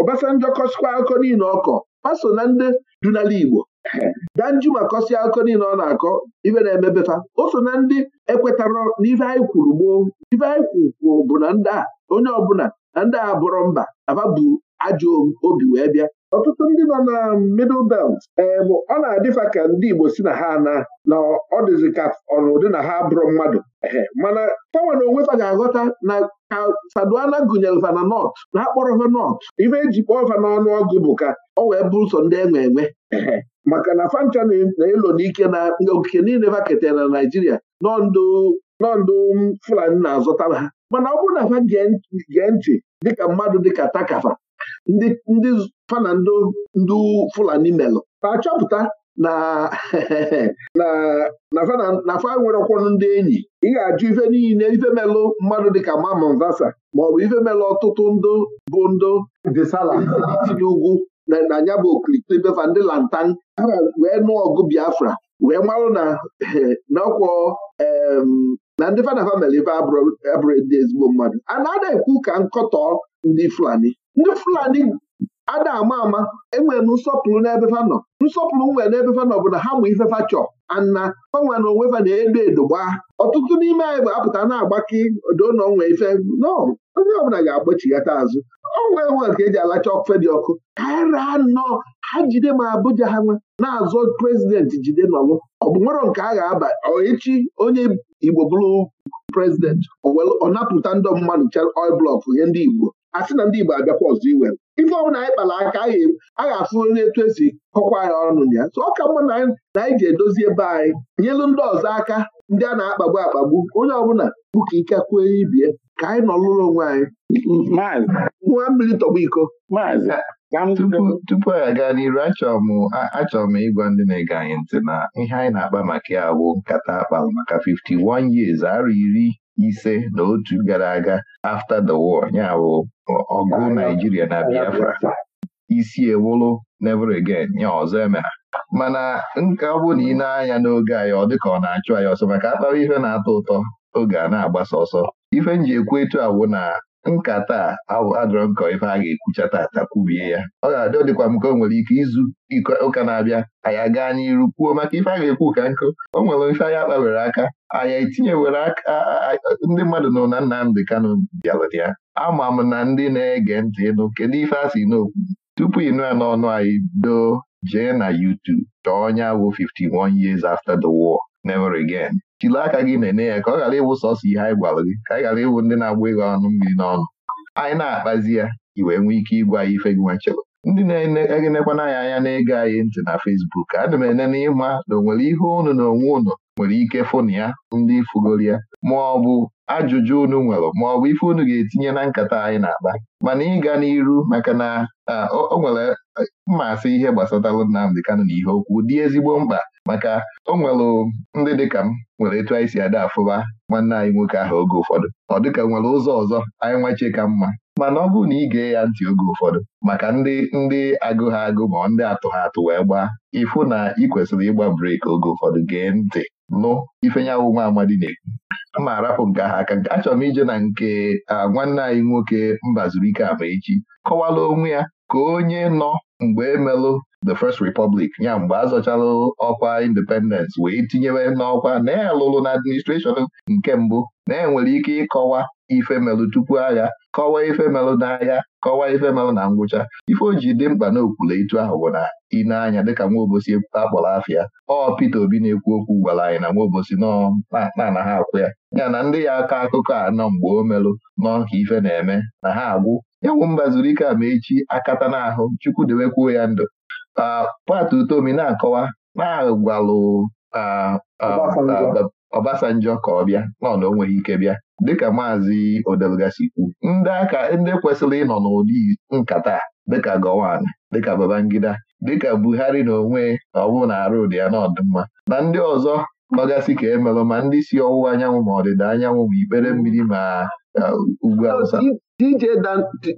Obasanjọ kọsikwa akụkọ niile ọkọ paso na ndị dunala Igbo danju ma kọsịa akụkọ niile ọ na-akọ ibe na-emebefa o so na ndị ekwetarọ n'ife anyị kwuru gboo ife anyị kwuru bụ na ndị a onye ọbụla na ndị a bụrọ mba afa bụ ajọ obi wee bịa ọtụtụ ndị nọ na middle belt ee bụ ọ na-adịfa ka ndị Igbo si na ha na na ọ dịzị ka ọnụdị na ha bụrụ mmadụ mana pawa na onwe ga-aghọta na ha faduana gụnyere fana nọt na ha nọt ife eji kpọọ fa n'ọnụ ọgụ bụ ka ọ wee bụrụ sọ ndị e enwe enwe maka na fancha na-elo n'ike na okike niile fa na Naịjirịa nọndụ Fulani na-azụtara ha mana ọ bụrụ na fa gee ntị dịka mmadụ dịka takafa ndị fana ndị Fulani melụ ta achọpụta na na fa nwere ọkwọnụ ndị enyi ị ga-ajụ ife niile ife melụ mmadụ dịka Mamman Vasa maọbụ ife melụ ọtụtụ ndụ bụ ndụ desala si n'ugwu na ya bụ okirikiri befa ndị lantan wee nụọ ọgụ Biafra wee marụ na n'ọkwọ na ndị fanafa mere ife abụrụ ndị ezigbo mmadụ a na-ada ekwu ka nkọtọ ndị Fulani ndị Fulani a na-ama ama enwere m nsọpụrụ n'ebe fanọ nsọpụrụ nwere n'ebe fa bụ na ha mụ ifefa chọ ana gbanwe na onwe fa na-edo edo gbaa ọtụtụ n'ime anyị ga-apụta na-agbaki odonọnwe ife nọ onye ọbụla ga-agbachighata azụ onwe enwe ka eji alacha ọkụfe dị ọkụ kaira e nọ ha jide ma abụja ha nwe na azụ prezidenti jide nọlụ ọ bụ nwere nke a ga-aba echi onye Igbo bụrụ prezidenti ọ napụta ndị mmadụ oil blọk nye ndị Igbo asị na ndị Igbo abịakwa ọzọ iwe ife ọbụla anyị kpara aka a ga-afụ onye etu esi kọkwa ya ọnụ ya so ọ ka mma na anyị ji edozi ebe anyị nyelu ndị ọzọ aka ndị a na-akpagbu akpagbu onye ọbụla bụ ka ike kwuo ibie ka anyị nọ lụrụ onwe anyị nwa mmiri tọgbu iko tupu aga aga n'iru achọrọ m ịgwa ndị na-ege anyị ntị na ihe anyị na-akpa maka ya bụ nkata akpalụ maka 51 years arụ iri ise na otu gara aga after the war ya bụ ọgụ Naijiria na Biafra isi ewuru never again ya ọzọ emere mana nke ọ bụ na ị na-anya n'oge anyị ọ dịka ọ na-achụ anyị ọsọ maka akpara ihe na-atọ ụtọ oge a na-agbasa ọsọ ife m ji ekwu etu awụ na nkata a nkọ ife a ga-ekwucha tata kwubie ya ọ ga-adị dịkwa m ka o nwere ike izu ụka na-abịa anyị gaa n'iru kwuo maka ife a ga-ekwu ka nkụ o nwere ife anyị kpawere aka anyị etinyewere aka ndị mmadụ nọ na Nnamdị kano bịalụrụ ya ama m na ndị na-ege ntị ịnụ kedu ife a si n'okwu tupu ịnụ ya n'ọnụ anyị doo jee na YouTube chọọ onye awụ 51 years after the war never again jiri aka gị nene ya ka ọ ghara ịwụ sọsọ ihe anyị gwara gị ka ị ghara ịwụ ndị na-agba ịghọ ọnụ mmiri n'ọnụ anyị na-akpazi ya i wee nwee ike ịgwa ya ife gị nwechere ndị na-egenekwana anyị anya na-ege anyị ntị na Fesbuk, adị m enene ịma na o nwere ihe unu na onwe unu nwere ike fụnụ ya ndị fụgoro ya ma ọ bụ ajụjụ unu nwere ma ọ bụ ife unu ga-etinye na nkata anyị na-akpa mana ịga n'iru maka na o nwere e, mmasị ihe gbasatara Nnamdị Kanụ na ihe okwu dị ezigbo mkpa maka o nwelụ ndị dịka m nwere etu anyị si ada afụba nwanne anyị nwoke ahụ oge ụfọdụ ọ dịka nwere ụzọ ọzọ anyị nwache ka mma mana ọ bụrụ na ị gee ya ntị oge ụfọdụ maka ndị ndị agụ ha agụ ma ndị atụ ha atụ wee gbaa ịfụ na ị kwesịrị ịgba breeki oge ụfọdụ gee ntị nụ ifenyawu nwa amadi na-ekwu ma arapụ nke ahụ aka nke achọrọ m ije na nke nwanne anyị nwoke Mbazurike Amaechi kọwala onwe ya ka onye nọ mgbe emelụ the First Republic ya mgbe a ọkwa independence wee tinyewe n'ọkwa na ya na administration nke mbụ na enwere ike ịkọwa ife melụ tupu agha kọwaa ife melụ n'agha kọwaa ife melụ na ngwụcha ife o ji dị mkpa na okwule etu ahụ bụ na ị na-anya dịka nwaobosi akpọrọ afịa ọ Peter Obi na-ekwu okwu gwara anyị na nwaobosi nọ na ha akwụ ya ya na ndị ya aka akụkọ anọ mgbe o melụ nọ ka ife na-eme na ha agwụ ya mba zuru ike ama echi akata n'ahụ chukwu dewekwuo ya ndụ pat utomi na-akọwa na-agwalụ ọbasanjọ ka ọ bịa n'ọnụ onweghị ike bịa dịka maazị odelgasi kwu ndị aka ndị kwesịrị ịnọ n'ụdị nkata dịka Gowon dịka Babangida dịka Buhari na onwe na ọ na arụ ya n'ọdịmma na ndị ọzọ nọgasị ka emelụ ma ndị si ọwụwa anyanwụ ma ọdịda anyanwụ ma ikpere mmiri ma ugwu awụsa DJ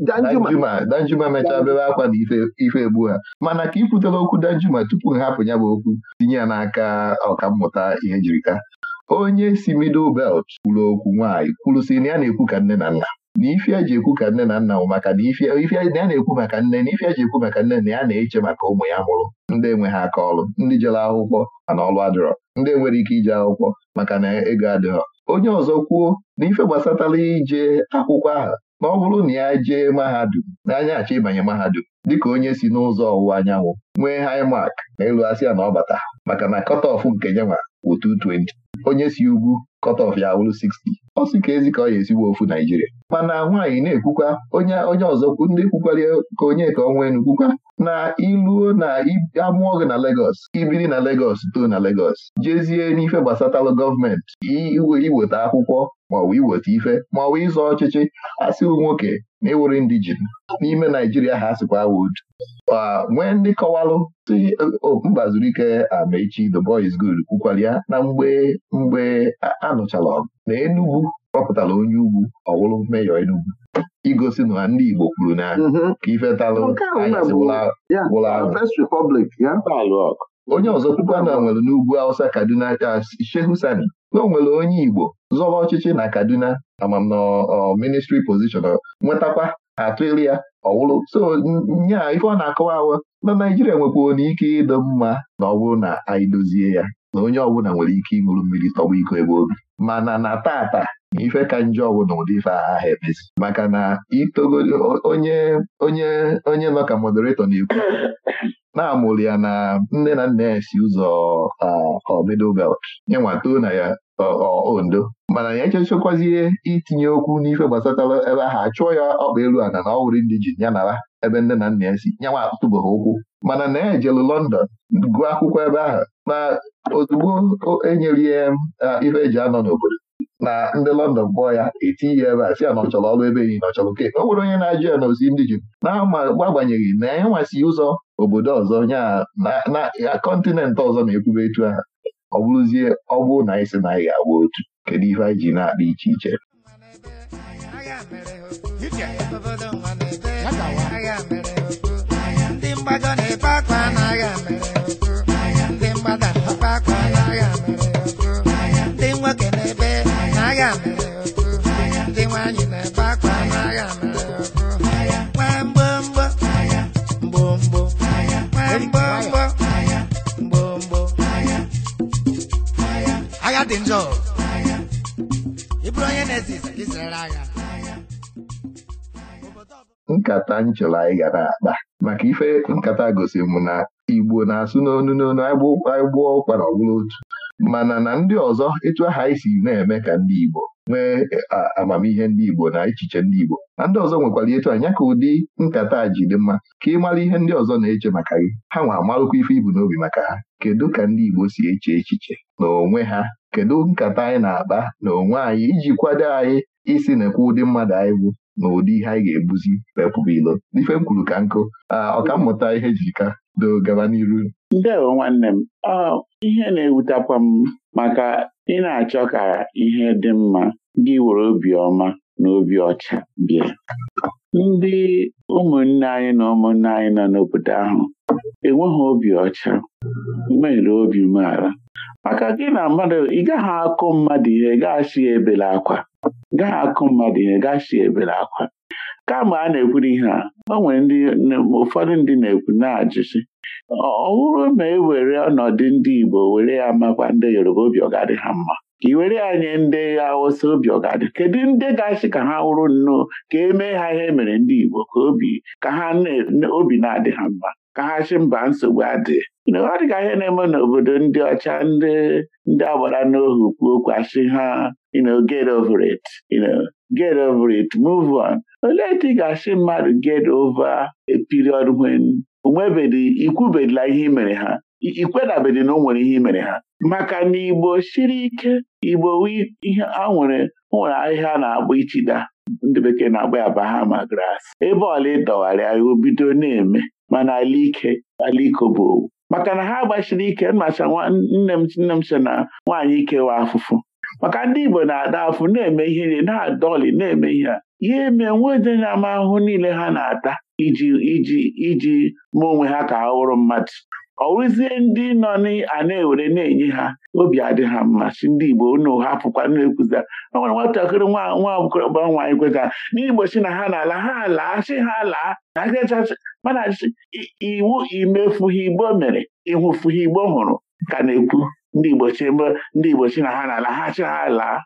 Danjuma Danjuma mechaa bebe akwa na ife egbu ha mana ka ikwutere okwu Danjuma tupu hapụ ya bụ okwu tinye ya n'aka mmụta ihe jirika onye si middle belt kwuru okwu nwaanyị kwuru si, na ya na-ekwu ka nne na nna na ife eji ekwu ka nne na nna nwụ maka na ife ya na-ekwu maka nne na ife eji ekwu maka nne na ya na-eche maka ụmụ ya mụrụ ndị enweghị aka ọrụ ndị jere akwụkwọ mana ọrụ adịrọ ndị enwere ike ije akwụkwọ maka na ego adịghọ onye ọzọ kwuo na ife gbasatara ije akwụkwọ ahụ ma ọ bụrụ na ya jee mahadum n'anya achọ ịbanye mahadum dịka onye si n'ụzọ ọwụwa anyanwụ nwee haimak ma asị asịa na ọ bata maka na kọtọf nke nyanwa bụ 220 onye si ugwu kọtọf ya wụrụ 60 ọ sị ka ezi ka ọ ya esigbo ofu Naijiria mana nwaanyị na-ekwukwa onye onye ọzọ ndị kwukwara ka onye ka ọnwa enu kwukwa na iluo na amụọ gị na Legọs ibiri na Legọs too na Legọs jezie n'ife gbasatalụ gọọmenti iweta akwụkwọ maọbụ iweta ife maọbụ ịzọ ọchịchị asịwụ nwoke na ịwụrụ e indijin n'ime Naijiria ha sịkwa wud nwee ndị kọwalụ si mba zuru ike amechi um, the boy is good kwukwara na mgbe mgbe anụchala ọgụ na Enugwu. kpọpụtara onye ugwu ọwụrụ meyọ enugwu igosi na ndị Igbo kwuru na mhm. ka wụrụ onye ọzọ kwukwa na nwere n'ugwu Awụsa Kaduna Shehu Sani na o nwere onye Igbo zọba ọchịchị na Kaduna amam na ministri position nwetakwa atụeli ya ọwụrụ so nya ife ọ na-akọwa ahụ na Naijiria nwekwa na ike ịdọ mma na ọ bụrụ na anyị dozie ya na onye ọbụla nwere ike ịṅụrụ mmiri tọwa iko ebe obi mana na tata ife ka njọ ọgwụ na ụdị ife aha emezi maka na itogolo onye onye onye nọ ka moderator na-ekwu na-amụrụ ya na nne na nna ya si ụzọ middle belt nye nwatoo na ya ondo mana ya echechekwazie itinye okwu n'ife gbasatara ebe ahụ achụọ ya ọkpa elu ana na ọwụrụ ndị ji ya nara ebe nne na nna ya si nyanwa ha ụkwụ mana na ya e ejelu London gụọ akwụkwọ ebe ahụ na ozugbo enyere ya ife eji anọ n'obodo na ndị London kpọọ ya etinye ya ebe a si ya na ọ chọrọ ọrụ ebe yi na ọ chọrọ nke o nwere onye na-ajụ ya na ozi ndị Juu na-agbanyeghị na ya e ụzọ obodo ọzọ ya kọntinent ọzọ na-ekwube etu ahụ ọ bụrụzie ọ na anyị si na anyị ga otu kedu ihe anyị ji na-akpa iche iche ndị mgbagọ na nkata nchọrọ anyị gara akpa maka ife nkata gosi m na Igbo na-asụ n'onu n'onu anyị gbuo ụkpara ọbụla otu mana na ndị ọzọ etu aha anyị si na-eme ka ndị Igbo nwee e, amamihe ndị Igbo na echiche ndị Igbo na ndị ọzọ nwekwara etu anya ka ụdị nkata ji dị mma ka ị mara ihe ndị ọzọ na-eche maka gị ha nwa amalụkwa ife ibu n'obi maka ha kedu ka ndị Igbo si eche echiche na onwe ha kedu nkata anyị na-akpa n'onwe anyị iji kwado anyị isi na-ekwe ụdị mmadụ anyị bụ na ụdị ihe anyị ga-ebuzi wepụbụ ilo n'ife m kwuru ka nkụ ọkammụta ihe jika doo gaba n'iru ndewo nwanne m ihe na-ewutakwa m maka ị na-achọ ka ihe dị mma gị were obiọma na obi ọcha bịa ndị ụmụnne anyị na ụmụnne anyị nọ n'obodo ahụ enweghị obi ọcha mere obi umeala maka gị na mmadụ ị gaghị akụ mmadụ ihe ị gaghị asị ya ebela akwa gaa akụ mmadụ ihe gaa si ebere akwa kama a na-ekwuru ihe a o nwere ndị ụfọdụ ndị na-ekwu na-ajụsi ọ bụrụ ma e were ọnọdụ ndị Igbo were ya makwa ndị Yoruba obi ọ ha mma ka iwere ya nye ndị Hausa obi ọ kedu ndị ga ka ha wụrụ nnọọ ka e mee ha ihe e mere ndị Igbo ka obi ka ha obi na-adị ha mma ka ha chi mba nsogbu adị ọ dịka ihe na-eme n'obodo ndị ọcha ndị ndị agbara n'ohu kwuo okwu asị ha get over it get over it move on olee etu ị ga-asị mmadụ get over a period when onwebedi ikwubedila ihe mere ha ikwedabedi na o nwere ihe mere ha maka na igbo siri ike igbo ihe a nwere nwere ahịhịa na-agba ichida ndị bekee na-agba ya hama, grass ebe ọla ịdọgharịa ya obido na-eme mana ala ike bụ owu maka na ha gbasiri ike macha nne m nne m na nwaanyị ikewa afụfụ maka ndị Igbo na-ada afụ na-eme ihe na adọlị na-eme ihe a ihe eme nwede ama ahụhụ niile ha na-ata iji iji iji mụ onwe ha ka ha wụrụ mmadụ ọwụzie ndị nọ a na-ewere na-enye ha obi adị ha mma si ndị Igbo unu hapụkwa na-ekwuzi o nwere nwatakịrị nwa nwa agbọrọba nwaanyị kweta n'igbochi na ha na-ala ha laa chi ha laa na agachachi mana iwu imefughị Igbo mere ịhụfughị Igbo hụrụ ka na-ekwu ndị Igbo chi mbe ndị Igbo chi na ha na-ala ha chi ha laa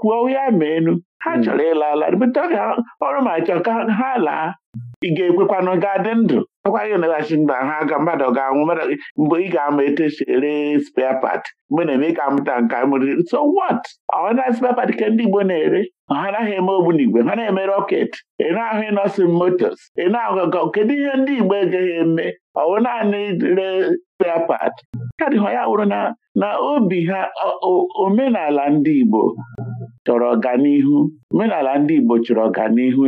kwuo ya ma enu ha hmm. chọrọ ịla ala ọrụ ma chọọ ka ha laa ị ga ekwekwanụ ga-adị ndụ akwaghị naghachi ndụ ha ga mmadụ ga-anwụ mmadụ mgbe ị ga-ama etu esi ere spare part mgbe na-eme ka amụta nke amụrịrị so what ọna spare part ka ndị Igbo na-ere ha anaghị eme ogbunigwe ha na-eme rọket ị na-ahụ ịnọsin motos ị na-ahụ kedu ihe ndị Igbo egaghị eme ọwụ naanị ree spare part ka dịghọ ya wụrụ na obi ha omenala ndị Igbo chọrọ ọganihu omenala ndị Igbo chọrọ ọganihu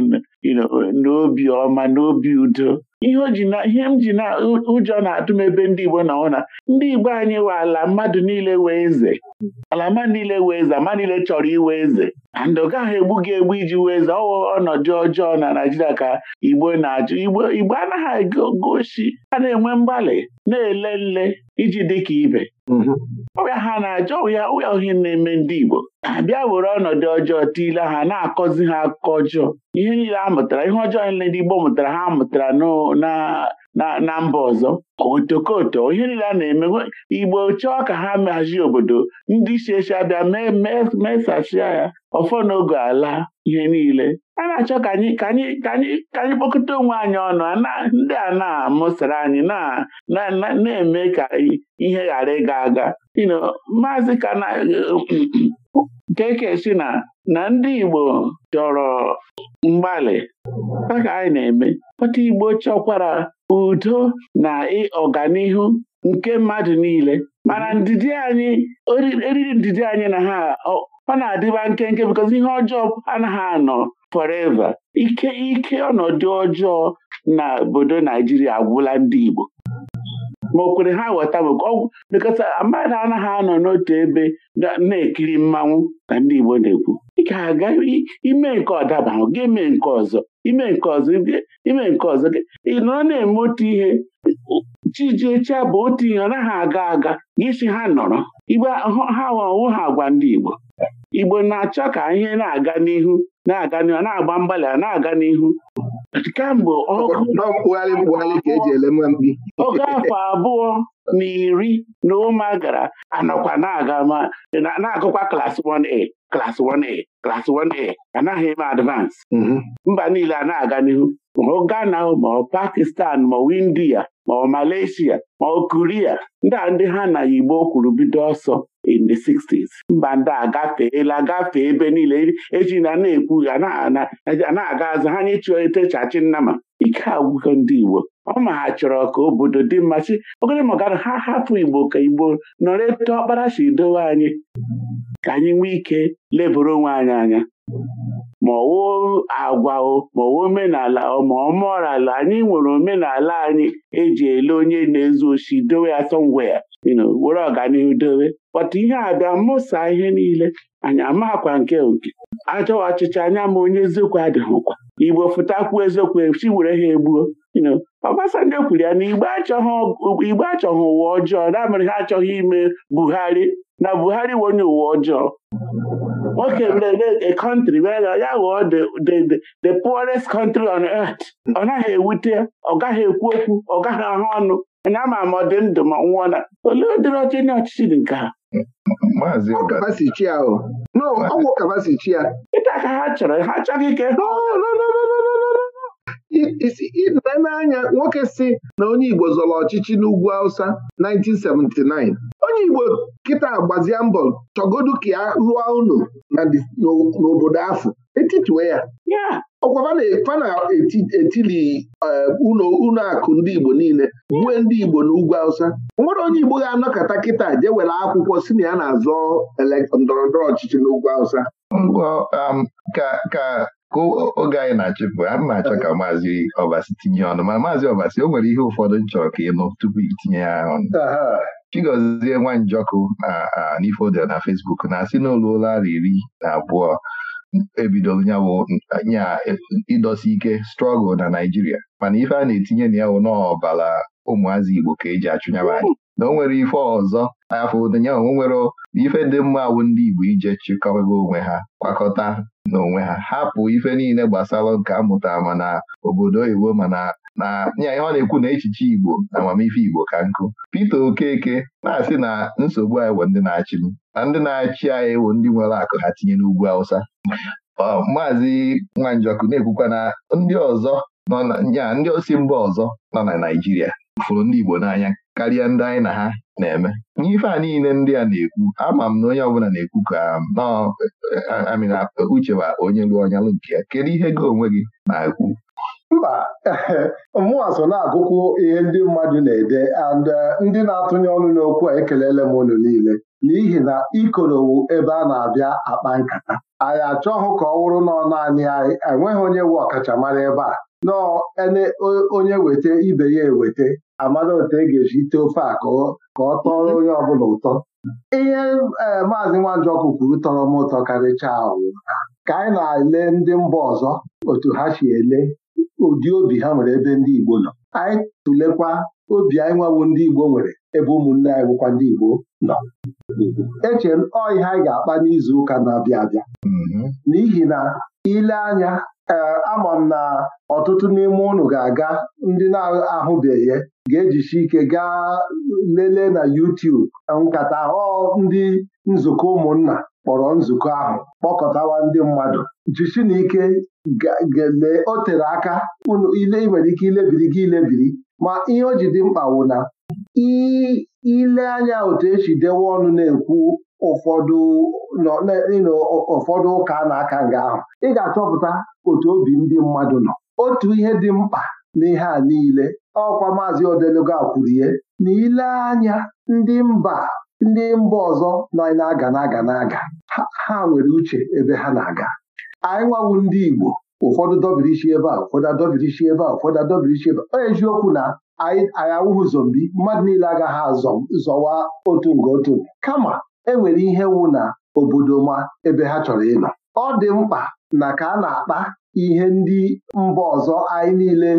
n'obi ọma n'obi udo ihe ihe m ji na ụjọ na-atụ m ebe ndị Igbo na ụna ndị Igbo anyị nwe ala mmadụ niile wee eze ala mmadụ niile wee eze ama niile chọrọ iwe eze na ndụga ahụ egbu gị egbu iji wee eze ọwụ ọnọdụ ọjọọ na Naijiria ka Igbo na-ajụ Igbo Igbo anaghị gosi a na-enwe mgbalị na-ele nle iji dị ka ibe mm-hmm. ọbịa ha na-achọ ụya ụya ohi na-eme ndị Igbo bịa were ọnọdụ ọjọọ tiile ha na-akọzi ha akụkọ ọjọọ ihe niile a mụtara ihe ọjọọ nile ndị Igbo mụtara ha mụtara na mba ọzọ otokoto ihe niile a na-eme Igbo chọọ ka ha mehazie obodo ndị isi echi abịa mesachia ya ọfọ n'oge ala ihe niile a na-achọ ka anyị ka anyị ka anyị kpọkọta onwe anyị ọnụ ndị a na-amụsara anyị na-eme ka ihe ghara ịga aga maazị kana keke um, si na na ndị Igbo chọrọ mgbalị ka anyị na-eme kpọta Igbo chọkwara udo na ọganihu nke mmadụ niile mana ndidi anyị eriri ndidi anyị na ha ọ na-adịba nkenke because ihe ọjọọ anaghị anọ forever ike ike ọnọdụ ọjọọ na obodo Naijiria agwụla ndị Igbo ma o kwere ha ghọta bekọta ah, mmadụ anaghị anọ n'otu ebe na-ekiri mmanwụ na ndị Igbo na-ekwu ị ga-aga ime nke ọdaba ahụ gị nke ọzọ ime nke ọzọ ime nke ọzọ gị ị nọ na-eme otu ihe Chijiecha bụ otu ihe ọ naghị aga aga gịsi ha nọrọ igbe ha ọwụ ha agwa ndị Igbo Igbo na-achọ ka ihe na-aga n'ihu na-aga n'ihu na-agba mgbalị a na-aga n'ihu kemgbe e oge afọ abụọ na iri na ụma gara anọkwa na-aga ma na-agụkwa klas 1A klas 1A klas 1A anaghị eme advance mhm. mba niile a na-aga n'ihu ma Ghana ma ọ Pakistan ma India ma ọ Malaysia ma ọ Korea ndị a ndị ha na Igbo kwuru bido ọsọ in the 60s mba ndị agafeela agafe ebe niile eji na na-ekwu na-aga azụ ha nye chitechachi nnama ike agwụgo ndị Igbo ọ ma ha chọrọ ka obodo dị mma chi ogene ma ha hapụ Igbo ka Igbo nọrọ eto ọkpara si dowe anyị ka anyị nwee ike leboro onwe anyị anya ma ọwụ agwa ma ọwụ omenala ma ọmọrala anyị nwere omenala anyị eji ele onye na-ezu oshi dowe ya somewhere were ọganihu dowe kpọta ihe a bịa mmụsa ihe niile anyị amakwa nke oke ajọwa ọchịchị anya ma onye eziokwu adịghịkwa igbo fụtakwuo eziokwu chi were ha egbuo Obasanjo e kwuru ya na igbo achọghị ụwa ọjọọ na mere ha achọghị ime Buhari na Buhari onye ụwa ọjọọ Okay, the, the, a country where ya ghọọ the, the, the poorest country on earth ọ naghị ewute ọ gaghị ekwu okwu ọ gaghị ahụ ọnụ na ama m ọ dị ndụ ma nwụọ na olee ụdịrị ọchị ndị ọchịchị dị nke ha ọgwụ kapasichi ya ịta ka ha chọrọ ha achọghị ike ile n'anya nwoke si na onye Igbo zọrọ ọchịchị n'ugwu Hausa 1979 onye Igbo kịta gbazie mbọ chọgodu ka ya rụọ unu n'obodo afọ etitue ya ya ọkwa fana etili eh, ụlọ akụ ndị Igbo niile gbue ndị Igbo n'ugwu Hausa nwere onye Igbo ga-anọkọta kịta jewere akwụkwọ si na ya na-azọ ndọrọndọrọ ọchịchị n'ugwu Hausa um, ka ka oge anyị na achọpụ a m na-achọ ka maazị ọbasi tinye ọnụ ma maazị ọbasi o nwere ihe ụfọdụ m chọrọ ka ịnụ tupu itinye ya ọnụ Chigozie Nwanjọkụ na Nifodel na Facebook na-asị n'ụlọ ụlọ iri na abụọ nyawo nya ịdọsi ike strọgụl na Naijiria mana ife a na-etinye na ya ụmụazị Igbo ka eji achụnyaba anyị na o nwere ife ọzọ afọ ụdịnya onwe nwere ife dị mma bụ ndị Igbo ije chịkọba onwe ha kwakọta n'onwe ha hapụ ife niile gbasara nke amụtara mana obodo oyibo mana na nya ihe ọ na-ekwu na echiche Igbo na amamife Igbo ka nkụ Peter Okeke na-asị na nsogbu anyị bụ ndị na-achị m na ndị na-achị anyị bụ ndị nwere akụ ha tinye n'ugwu Hausa maazị Nwanjọkụ na-ekwukwa na ndị ọzọ nọ na nya ndị osi mba ọzọ nọ na Naịjirịa fụrụ ndị Igbo n'anya karịa ndị anyị na ha na-eme n'ife a niile ndị a na-ekwu ama m na onye ọbụla na-ekwu ka amịna um, uche bụ onye lụọ ọnyalụ lụ nke ya kedu ihe gị onwe gị na-ekwu mba mụnwa so na-agụkwụ ihe ndị mmadụ na-ede and uh, ndị na-atụnye ọnụ n'okwu a ekelele m unu niile n'ihi na ikorowu ebe a na-abịa akpa nkata anyị achọghụ ka ọ wụrụ nọ naanị anyị enweghị onye wu ọkachamara ebe a ele onye weta ibe ya eweta amara otu e ga-eji ite ofe a ka ọ tọrọ mhm. onye ọbụla ụtọ ihe e, maazị Nwanjọkụ kwuru tọrọ m ụtọ karịchaa awụ ka anyị na-ele ndị mba ọzọ otu ha si ele ụdị obi ha nwere ebe ndị Igbo nọ anyị tụlekwa obi anyị nwawo ndị Igbo nwere ebe ụmụnne anyị bụkwa ndị Igbo nọ eche m ọ ihe anyị ga-akpa n'izu ụka na-abịa abịa mhm. n'ihi na ile anya e, ama m na ọtụtụ n'ime ụnụ ga-aga ndị na-ahụbeghị ga-ejichi ike gaa lelee na YouTube nkata ọ ndị nzukọ ụmụnna kpọrọ nzukọ ahụ kpọkọtawa ndị mmadụ jichi na ike o tere aka ile ị nwere ike ilebiri gị ilebiri ma ihe o ji dị mkpa wụ na ile anya otu esi dewe ọnụ na-ekwu ụfọdụ ụfọdụ ụka na-aka nga ahụ ị ga-achọpụta otu obi ndị mmadụ nọ otu ihe dị mkpa n'ihe a niile ọkwa maazị odeluga kwurie na ile anya ndị mba ndị mba ọzọ nọ na-aga na-aga na-aga ha nwere uche ebe ha na-aga anyị nwawu ndị Igbo ụfọdụ dọbirichi ebe a ụfọdụ adọbirichi ebe a ụfọdụ adọbirichi ebe a eziokwu na anyị awụghị zombi mmadụ niile agaghị azọ zọwa otu nga otu kama enwere ihe wụ na obodo ma ebe ha chọrọ ịnọ ọ dị mkpa na ka a na-akpa ihe ndị mba ọzọ anyị niile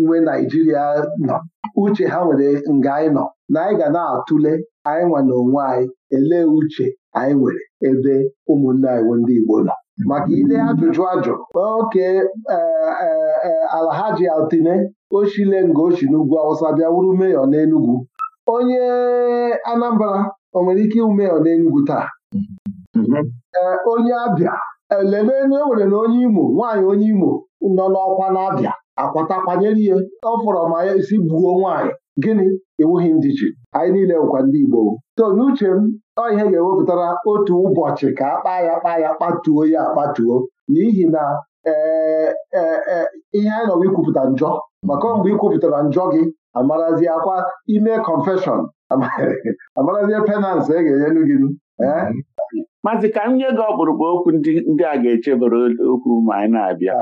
nwe Naijiria nọ uche ha nwere nga anyị nọ na anyị ga na-atụle anyị nwa na onwe anyị elee uche anyị nwere ebe ụmụnne anyị ndị Igbo nọ maka ile ajụjụ ajụ oke eh, eh, eh, Alhaji Altine ochile nga ochi n'ugwu Awụsa bịa wuru meyọ n'Enugwu onye Anambra o nwere ike ịwụ meyọ n'Enugwu taa mhm. onye Abịa elenenu e nwere na onye Imo nwaanyị onye Imo nọ n'ọkwa n'Abịa akwatakwanyere ihe ọ fọrọ ma ya esi gbuo nwaanyị gịnị ewughị ndị ji anyị niile nkwa ndị Igbo so n'uche m ọ ihe ga-ewepụtara otu ụbọchị ka akpa ya kpa ya kpatuo ya akpatuo n'ihi na e, e, e, ihe anyị nọwa ikwupụta njọ maka mgbe ikwupụtara njọ gị amarazi ime confession amarazie penalt e ga-enyelu gị Mazị ka m nye gị ọkpụrụkpụ okwu ndị a ga-echebere okwu ma anyị na-abịa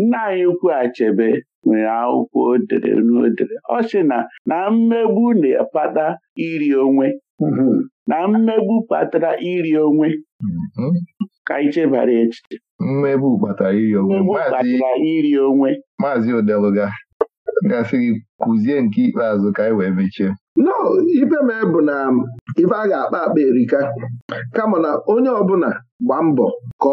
nna anyị ukwu Achebe nwere akwụkwọ odere dere n'odere ọ sị na na mmegbu na-akpata iri onwe mm-hmm. na mmegbu kpatara iri onwe ka anyị chebara echiche mmegbu kpatara iri onwe iri onwe maazị odeluga gasịrị kụzie nke ikpeazụ ka anyị wee mechie no ife mee bụ na ife a ga-akpa akpa erika kama na onye ọbụla gba mbọ ka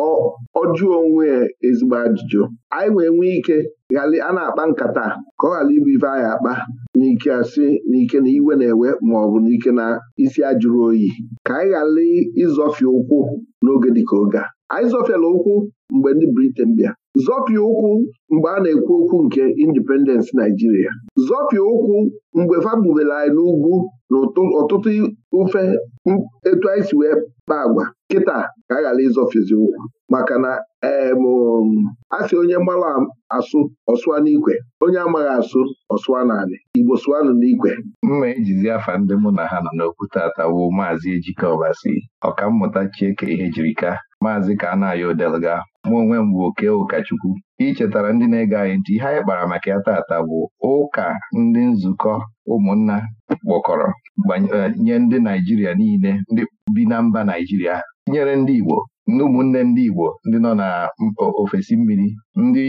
ọ jụọ onwe ezigbo ajụjụ anyị wee nwee ike a na-akpa nkata ka ọ ghara ịbụ ife anyị akpa n'ike asị n'ike na iwe na-ewe ma ọ bụ n'ike na isi ajụrụ oyi ka anyị ghara ịzọfie ụkwụ n'oge dịka oge a anyị zọfiela ụkwụ mgbe ndị briten bịa zọpịa ụkwụ mgbe a na-ekwu okwu nke indipendensị Naijiria zọpịa ụkwụ mgbe fabubere anyị n'ugwu na ọtụtụ ofe etu anyị si wee kpaa agwa kịta ka a ghara ịzọfizi ụkwụ maka na um, a sị onye mara asụ ọsụa n'ikwe onye amaghị asụ ọsụa n'anị Igbo sụanụ n'ikwe mma ejizi afa ndị mụ na ha nọ n'okwu tata bụ maazị Ejike Ọbasi ọkammụta Chieke ka maazị Kanayo Delga mụ onwe m bụ oke ụkọchukwu chetara ndị na-ege anyị ntị ihe anyị kpara maka ya taata bụ ụka ndị nzukọ ụmụnna kpọkọrọ eh, nye ndị Naijiria niile ndị bi na mba Naijiria nyere ndị Igbo ndị ụmụnne ndị Igbo ndị nọ na ofesi mmiri ndị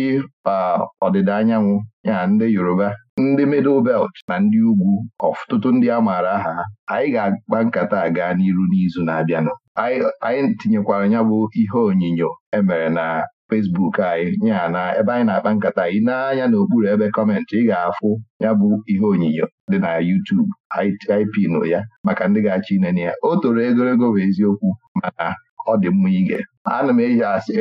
ọdịda anyanwụ ya ndị Yoruba ndị Middle Belt na ndị ugwu ọtụtụ ndị a maara aha anyị ga akpa nkata gaa n'iru n'izu na-abịanụ anyị tinyekwara ya bụ ihe onyinyo emere na fesbuk anyị ya na ebe anyị na-akpa nkata anyị n'anya n'okpuru ebe kọmentị ị ga-afụ ya bụ ihe onyinyo dị na yutubu anyị ya maka ndị ga-achọ inene ya o toro egologo bụ eziokwu mana ọ dị mma ige ana m eji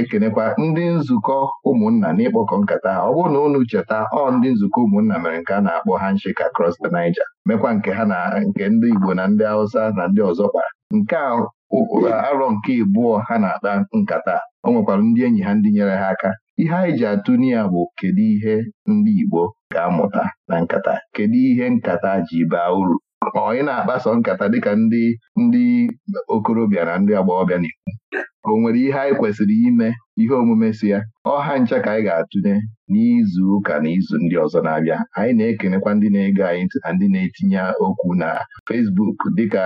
ekenekwa ndị nzukọ ụmụnna n'ịkpọkọ nkata ha ọ bụrụ na unu cheta ọ ndị nzukọ ụmụnna mere nke a na-akpọ handshake across the Niger mekwa nke ha na nke ndị Igbo na ndị Hausa na ndị ọzọ kpara nke a arọ nke ịbụọ ha na-akpa nkata o nwekwara ndị enyi ha ndị nyere ha aka ihe anyị ji atụ ya bụ kedu ihe ndị Igbo ga-amụta na nkata kedu ihe nkata ji baa uru ma ọ ị na-akpaso nkata dịka ndị ndị okorobịa na ndị agbọghọbịa n'ikwu o nwere ihe anyị kwesịrị ime ihe omume si ya ọha ncha ka anyị ga-atụnye n'izu ụka na izu ndị ọzọ na-abịa anyị na-ekenekwa ndị na-ege anyị na ndị na-etinye okwu na Fesbuk dịka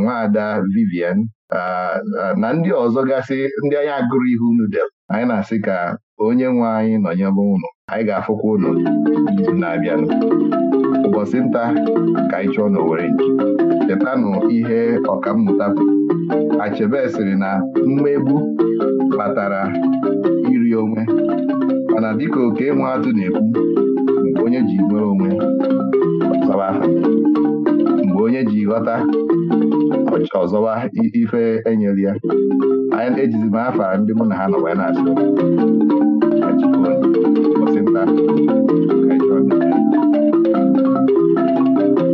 Nwaada Vivian na ndị ọzọ gasị ndị anyị agụrụ ihu unu del anyị na-asị ka onye nwe anyị nọnyere ụlọ anyị ga-afụkwa ụlọ n'izu na-abịanụ ụbọchị nta ka anyị chọọ n'Owere chetanụ ihe ọkammụta Achebe sịrị na mmegbu kpatara iri onwe mana dịka oke nwe atụ na-ekwu mgbe onye ji nwere onwe mgbe onye ji ghọta ụbọchị ọzọwa ife enyelu ya anyị ejizi m afọ ndị mụ na ha nọ wee na-asị ụbọchị nta